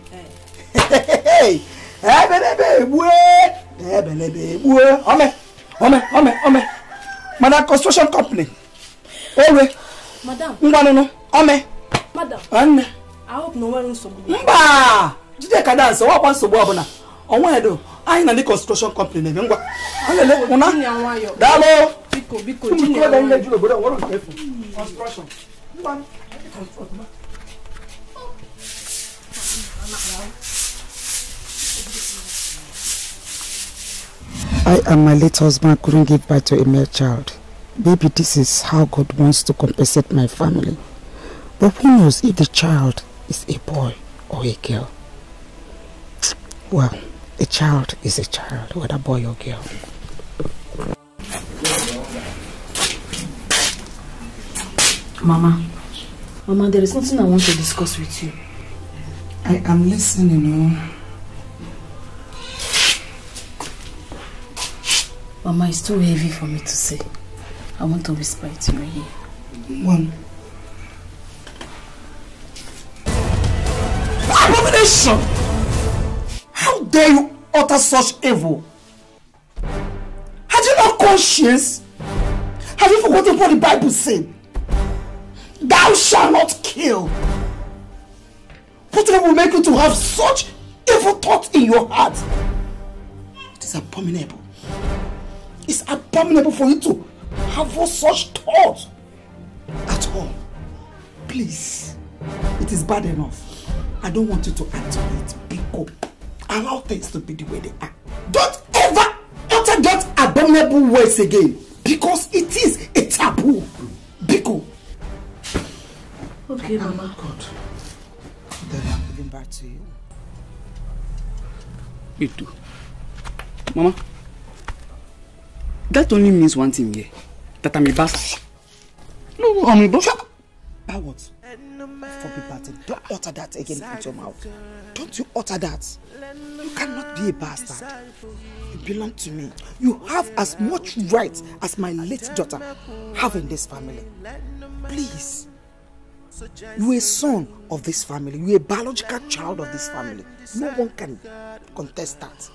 A: Hey, ebelebe ebue, ebelebe ebue, ome, ome, ome, ome. Madam construction company. Ewe.
C: Madam. Ngwanunu, ome. Madam. Anne. I hope no one will support me.
A: Mba! Jide ka dance, ọwọ́ kwa nsogbu ọbụla. construction company ụna I and my late husband couldn't give birth to a male child. Baby, this is how God wants to compensate my family. But who knows if the child is a boy or a girl? Well, a child is a child, whether boy or girl. Mama, Mama, there is nothing I want to discuss with you. I am listening, you oh. Mama, it's too heavy for me to say. I want to whisper it to you here. One. Abomination! How dare you utter such evil? Had you not conscience? Have you forgotten what the Bible said? Thou shalt not kill. What will make you to have such evil thoughts in your heart? It is abominable. It's abominable for you to have all such thoughts at all. Please, it is bad enough. I don't want you to add to it. Pick up. Allow things to be the way they are. Don't ever utter that abominable words again because it is a taboo. Biko. Okay, oh, Mama. Oh, God. Then I'm giving back to you. You too. Mama, that only means one thing here. That I'm a bastard. No, I'm a bastard. About what? forbid bastard. Don't utter that again out your mouth. Don't you utter that.
B: You cannot be a bastard.
A: You belong to me. You have as much right as my late daughter have in this family.
B: Please. You a
A: son of this family. You a biological child of this family. No one
B: can contest that.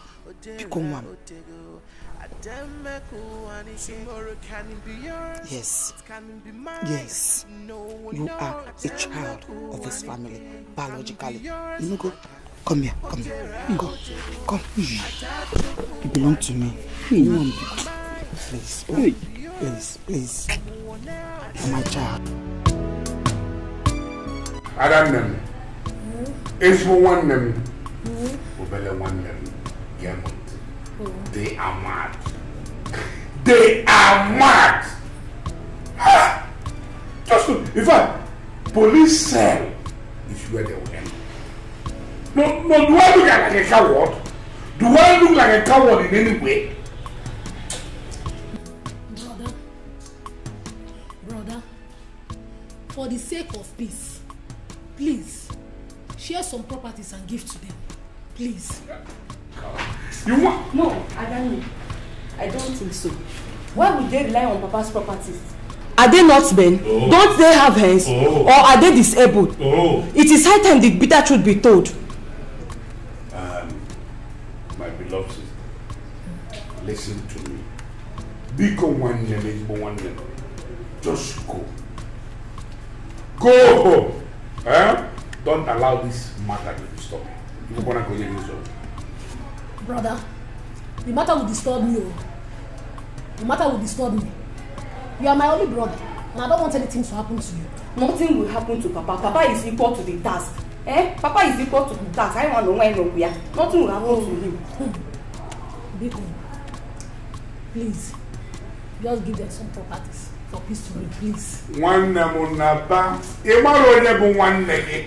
B: Become one. Yes. Yes. You
A: are a child of this family, biologically. You go. Come here, come here. Go. Come. You belong to me. You Please, please, please. please. My child. Adam nem. Hmm? Ezbo one nem.
C: Hmm?
A: Obele one nem. Yemo. They are mad. They are mad. Ah! Just look. In fact, police cell is where they will end. No, no, do I look like a coward? Do I look like a coward in any way? Brother, brother, for the sake of peace, please share some properties and give to them. Please. Yeah. You want? No, Adani, I don't think so.
C: Why would they rely on Papa's properties?
A: Are they not men? Oh. Don't they have hands? Oh. Or are they disabled? Oh. It is high time the bitter truth be told. Um, my beloved sister, listen to me. Become one name, one name. Just go. Go home. Eh? Don't allow this matter to stop you. You're gonna go in
B: yourself.
C: Brother, the matter will disturb me.
A: The matter will disturb me. You are my only brother, and I don't want anything to happen to you. Nothing will happen to Papa. Papa is equal to the task. Eh? Papa is equal to the task. I want to know where Nothing will happen to him. Hmm. Biko, please,
C: just give them some properties for peace to me, please.
A: One Nabba. Imaro Nebu one Negi.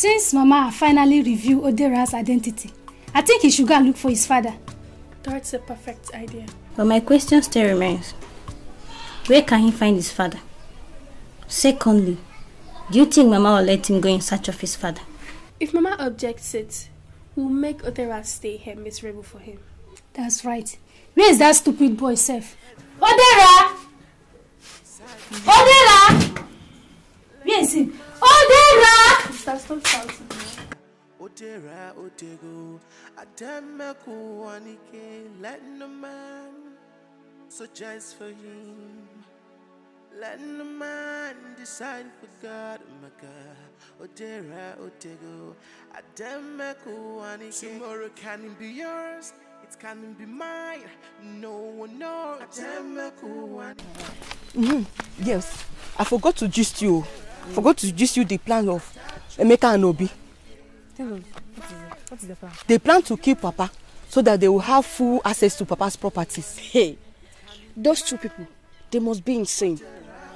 C: Since Mama finally revealed Odera's identity, I think he should go and look for his father. That's a perfect idea. But my question still remains. Where can he find his father? Secondly, do you think Mama will let him go in search of his father? If Mama objects it, we'll make Odera stay here miserable for him. That's right. Where is that stupid boy, Seth? Odera! Odera! Where is him? Oh, Dera! Stop, stop shouting.
B: Odera, Odego, Adamaku, Anike, letting a man such as for him. Letting the man decide for God, my God. Odera, Odego, Adamaku, Anike. Tomorrow can be yours. It can be mine. No one knows. Adamaku, Anike.
A: Mm -hmm. Yes, I forgot to gist you. forgot to gist you the plan of Emeka and Obi.
C: the
A: plan? They plan to kill Papa so that they will have full access to Papa's properties. Hey, those two people, they must be insane.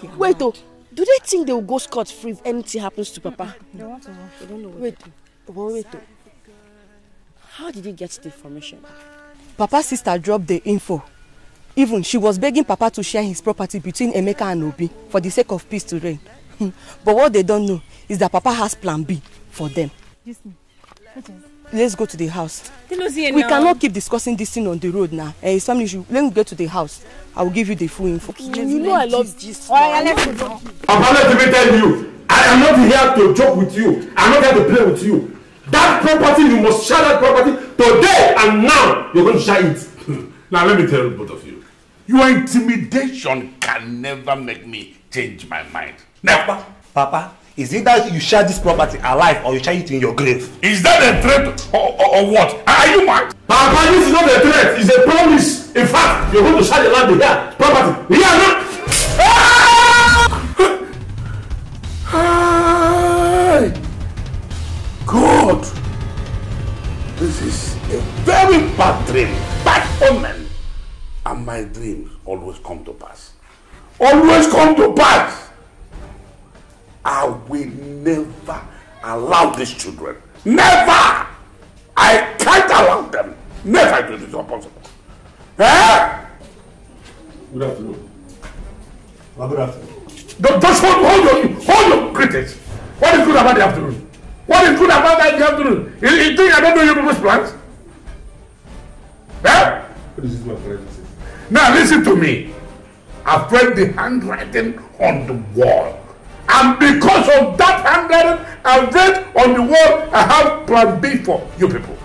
A: Yeah. Wait, though, do they think they will go scot free if anything happens to Papa? Wait, wait, wait, though. How did he get the information? Papa's sister dropped the info. Even she was begging Papa to share his property between Emeka and Obi for the sake of peace to reign but what they don't know is that Papa has plan B for them. Let's go to the house.
C: We cannot keep
A: discussing this thing on the road now. Eh, it's family issue. Let me get to the house. I will give you the full info. You, know
C: I love this. Papa, let me
A: tell you. I am not here to joke with you. I'm not here to play with you. That property, you must share that property today and now. You're going to share it. now, let me tell both of you. Your intimidation can never make me change my mind. Never. Papa, is it that you share this property alive or you share it in your grave? Is that a threat or, or, or what? Are you mad? Papa, this is not a threat. It's a promise. In fact, you're going to share the land here. Property. Here, no?
C: Hi.
A: God! This is a very bad dream. Bad omen. And my dreams always come to pass always come to pass. I will never allow these children. Never! I can't allow them. Never do this impossible. Eh? Good afternoon. Well, good afternoon. Don't, just hold, hold your, hold your critics. What is good about the afternoon? What is good about that in the afternoon? You, you think I don't know your people's plans? Eh? What is this my friend? Now listen to me. I've read the handwriting on the wall. And because of that handwriting I read on the wall, I have plan B for you people.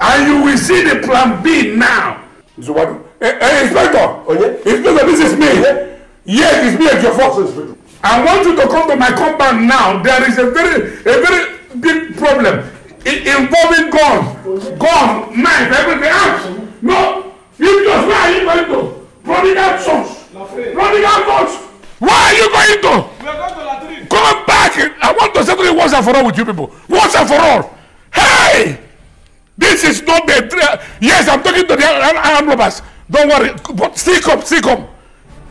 A: And you will see the plan B now. So what? Hey, hey Inspector! Oh, yeah? Inspector, this is me. Yeah? Yes, it's me at your forces. I want you to come to my compound now. There is a very, a very big problem it, involving guns, guns, knife, everything else. Ah, no, you just where are you going to? Providence source. Running out much. Where are you going to? We are going to Latrine. Come back. I want to settle it once and for all with you people. Once and for all. Hey! This is not the. Yes, I'm talking to the armed robbers. Don't worry. But still come, still come.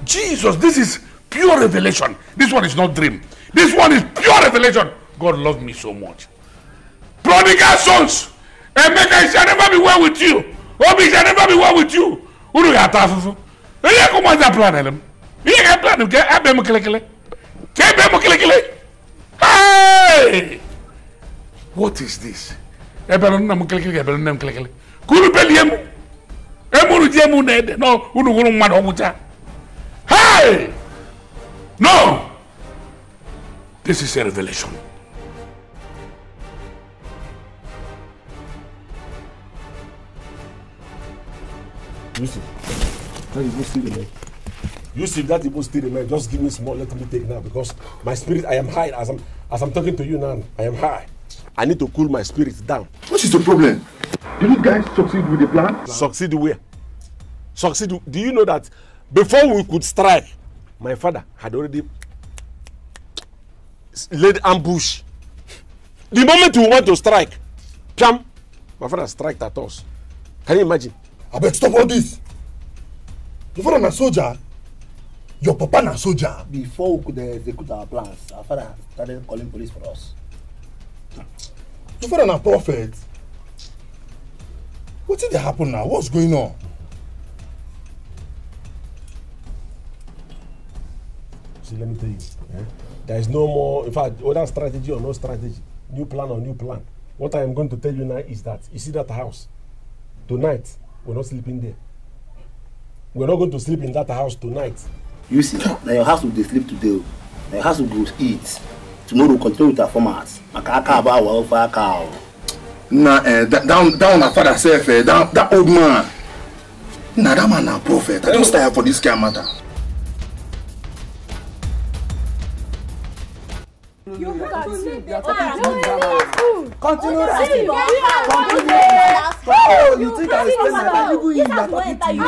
A: Jesus, this is pure revelation. This one is not dream. This one is pure revelation. God loved me so much. Prodigal sons. Emeka, it shall never be well with you. Obi, shall never be well with you. Who do Uru ya tafufu. Ele commence à planer dem. Il y a plan que abe mo kele kele. Ke be mo kele kele. Hey! What is this? Ebe no na mo kele kele, ebe no na mo kele Kuru be liem. E mo ru die mo na ede. No, unu huru mma Hey! No! This is a revelation. Listen. That is even still remain. Yusuf, that even still remain. Just give me small, let me take now because my spirit, I am high. As I'm, as I'm talking to you now, I am high. I need to cool my spirit down. What is the problem? Did you guys succeed with the plan? Succeed where? Succeed. Do you know that before we could strike, my father had already laid ambush. The moment we want to strike, pam, my father striked at us. Can you imagine? I beg stop all this your father na soldier your papa na soldier. before we dey execute our plans our father started calling police for us. your father na prophet wetin dey happen now what's going on. see let me tell you eh? there is no more in fact whether strategy or no strategy new plan or new plan what i am going to tell you now is that you see that house tonight we no sleeping there we're not going to sleep in that house tonight. you see na your house we dey sleep today o oh. na your house we go eat tomorrow we continue with our format maka aka aba awa ofe aka o. Oh. na eh, that one na father sef eh. that old man na that man na prophet i don tire for dis kain matter.
C: Mm-hmm. continue that ah, continue continue oh you think I explain my time even if you are talking to me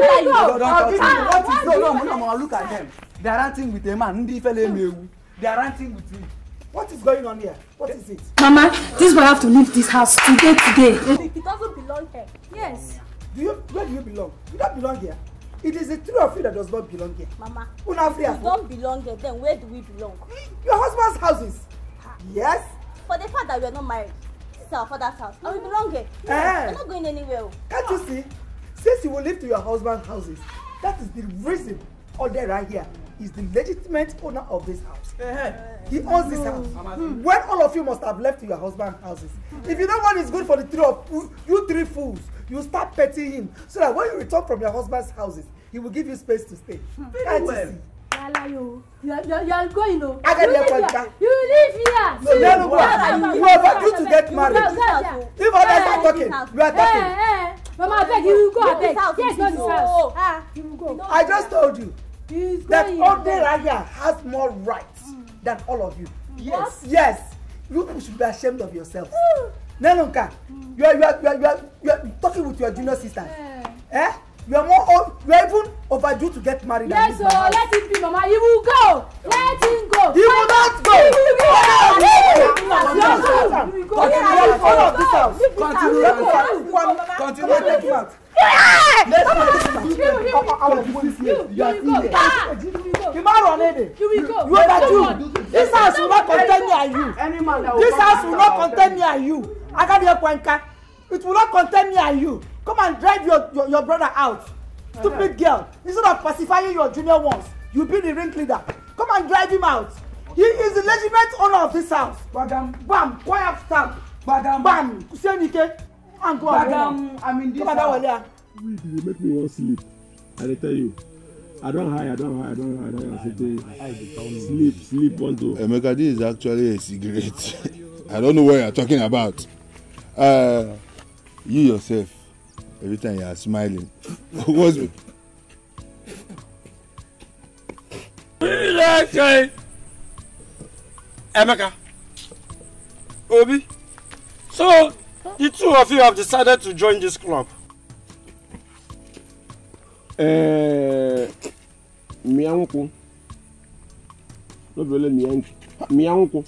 C: yes you don talk to me what is no no no
A: no look at them they are ranting with a man ndi ifele mewu they are ranting with me what is going on here what is it. mama this boy have to leave this house today today. he doesn't belong here. yes. do you where do you belong you don't belong here. It is the three of you that does not belong here.
C: Mama, Una we don't belong here. Then where do we belong? Your husband's houses. Ha. Yes. For the fact that we are not married, this is our father's house. Mm. And we mm. belong here. Eh. Yeah. We're not going anywhere.
A: Can't you ah. see? Since you will live to your husband's houses, that is the reason all there right here is the legitimate owner of this house. Eh, eh. He owns this house. When all of you must have left to your husband's houses. If you don't want it's good for the three of you, you three fools you start petting him so that when you return from your husband's houses he will give you space to stay. Hmm. very Can't well. You see?
C: Alayo, you are, you are, you are going o. Agadi ẹ̀kọ́ ìta. You live here. No, no, no, no. You are about to get married. If others are eh, eh, talking, eh, you are talking. Hey, hey. Mama, abeg, you go abeg. Yes, go this house. Ah, you go. I just told you
A: He's that Oderaya has more rights hmm. than all of you. Yes. Yes. You should be ashamed of yourself. Nenonka, mm. you are you are you are you are, you are talking with your junior sister. Yeah. Eh? You are more old, you are even overdue to get married. Yes, so oh,
C: let him be, Mama. He will go. Let him go. He will not go. He will go. He will go. He will go.
B: He will Continue. Take him out.
C: Yeah. Let's go. He will go. with you. You are still here. You man run it. You will go. You This house will not contain me and you. This house will not contain me
A: and you. I got your Kwenka. It will not contain me and you. Come and drive your, your, your brother out. Stupid girl. Instead of pacifying your junior ones, you be the ring leader. Come and drive him out. He is the legitimate owner of this house. Madam. Bam. Quiet stamp. Madam. Bam. Kusenike. And go Madam, I'm in this Come house. Madam, Wale. Wait, you make me want sleep. I dey tell you. I don't hide, I don't hide, I don't hide. I don't hide. C'était sleep, sleep, Emeka, this is actually a cigarette. I don't know what you're talking about. Uh, you yourself, every time you are smiling. What's it? Emeka, Obi, so the two of you have decided to join this club mmea nkwụ nobele mmea nkwụ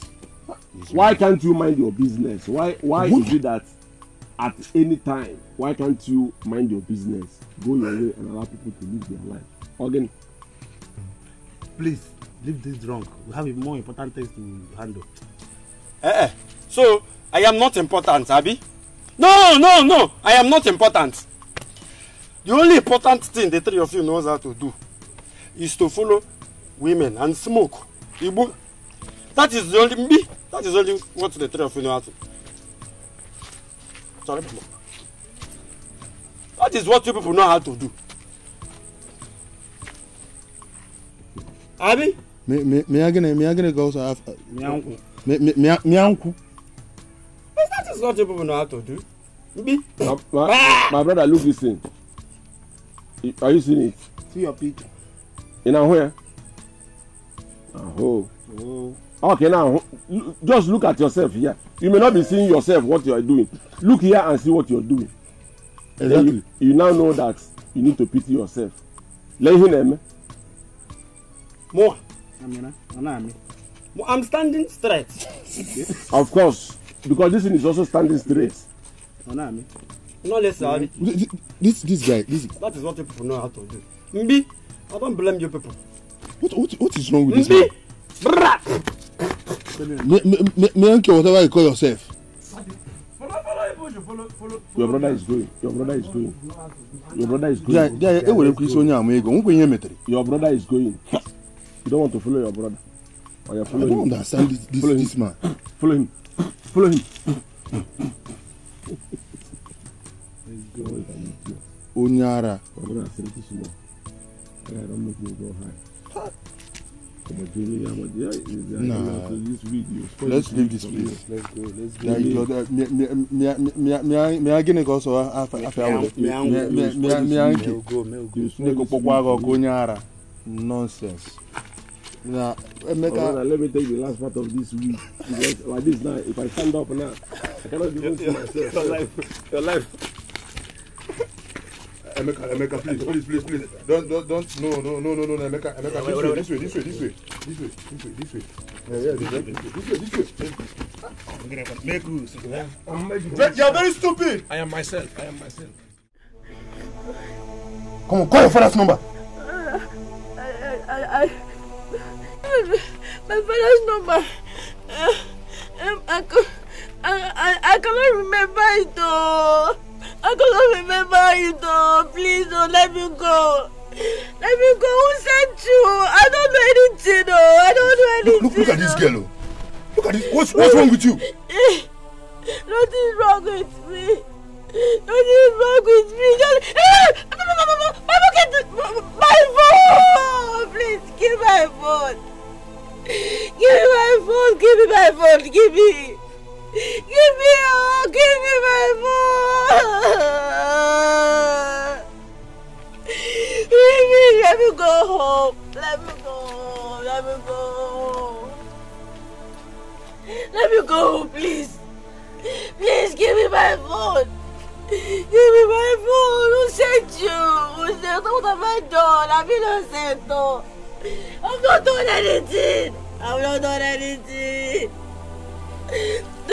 A: why can't you mind your business why why What? is it that at any time why can't you mind your business go your way and allow people to live their life again. please leave this drunk we have more important things to handle. Eh, eh. so i am not important abi no no no i am not important The only important thing the three of you knows how to do is to follow women and smoke. Igbo. That is the only me. That is only what the three of you know how to. Sorry, That is what you people know how to do. Abi? Me me me agene me agene goes after. Me anku. Me me me anku. Uh, that is what you people know how to do. Mbi. My, my, my brother, look this thing. Are you seeing it? See your picture. In a where? Oh. oh. oh. Okay, now just look at yourself here. You may not be seeing yourself what you are doing. Look here and see what you are doing. Exactly. Then you, you now know that you need to pity yourself. Lay náà ẹ̀mẹ́. Mo. Amina, Ana I'm standing straight. of course, because this thing is also standing straight. Ana mi no less salary. this this guy this. that is what people know how to do mbi i don't blame you people. what what what is wrong with mbi. this man. me, Menke, whatever you call yourself. Your brother is going. Your brother is going. Your brother is going. Yeah, yeah. Ewere kwisi onye ama ego. Nkwe ihe metere. Your brother is going. You don't want to follow your brother. Or you follow I don't him. understand this, this, follow this man. Follow him. Follow him o nyara Nah, let's leave this place. Let's go. Let's go. Me, me, me, me, me, me, agine ko so afa afa awole. Me, me, me, me, anki. Ne ko pokwa ko kunyara. Nonsense.
C: Now, Emeka, oh, brother,
A: let me take the last part of this week. Because like this now, if I stand up now, I cannot do it to myself. Your life, your life. Emeka, Emeka, please, please, please, please. Don't, don't, don't. No, no, no, no, no, Emeka, Emeka, yeah, this, way, this way, this way, this way, this way, this way, this way. Yeah, yeah, this way, this way, this way. Make rules. You are very stupid. I am myself. I am myself. Come on, call your father's number.
C: I, I, I, I, my father's number. Uh, um, I, I, I, I cannot remember it though. I cannot remember you though. Please don't oh, let me go. Let me go. Who sent you? I don't know anything though. I don't know anything. Look, look, look at this oh. girl. Oh. Look at this. What's, what's wrong with you? Nothing's wrong with me. Nothing's wrong with me. Just, my eh! phone. My phone. Please give my phone. Give me my phone. Give me my phone. Give me. Give me all, give me my phone. Give me, let me go home. Let me go Let me go Let me go home, please. Please give me my phone. Give me my phone. Who sent you? Who sent you? What have I done? I've been innocent. I've not done anything. I'm not done anything.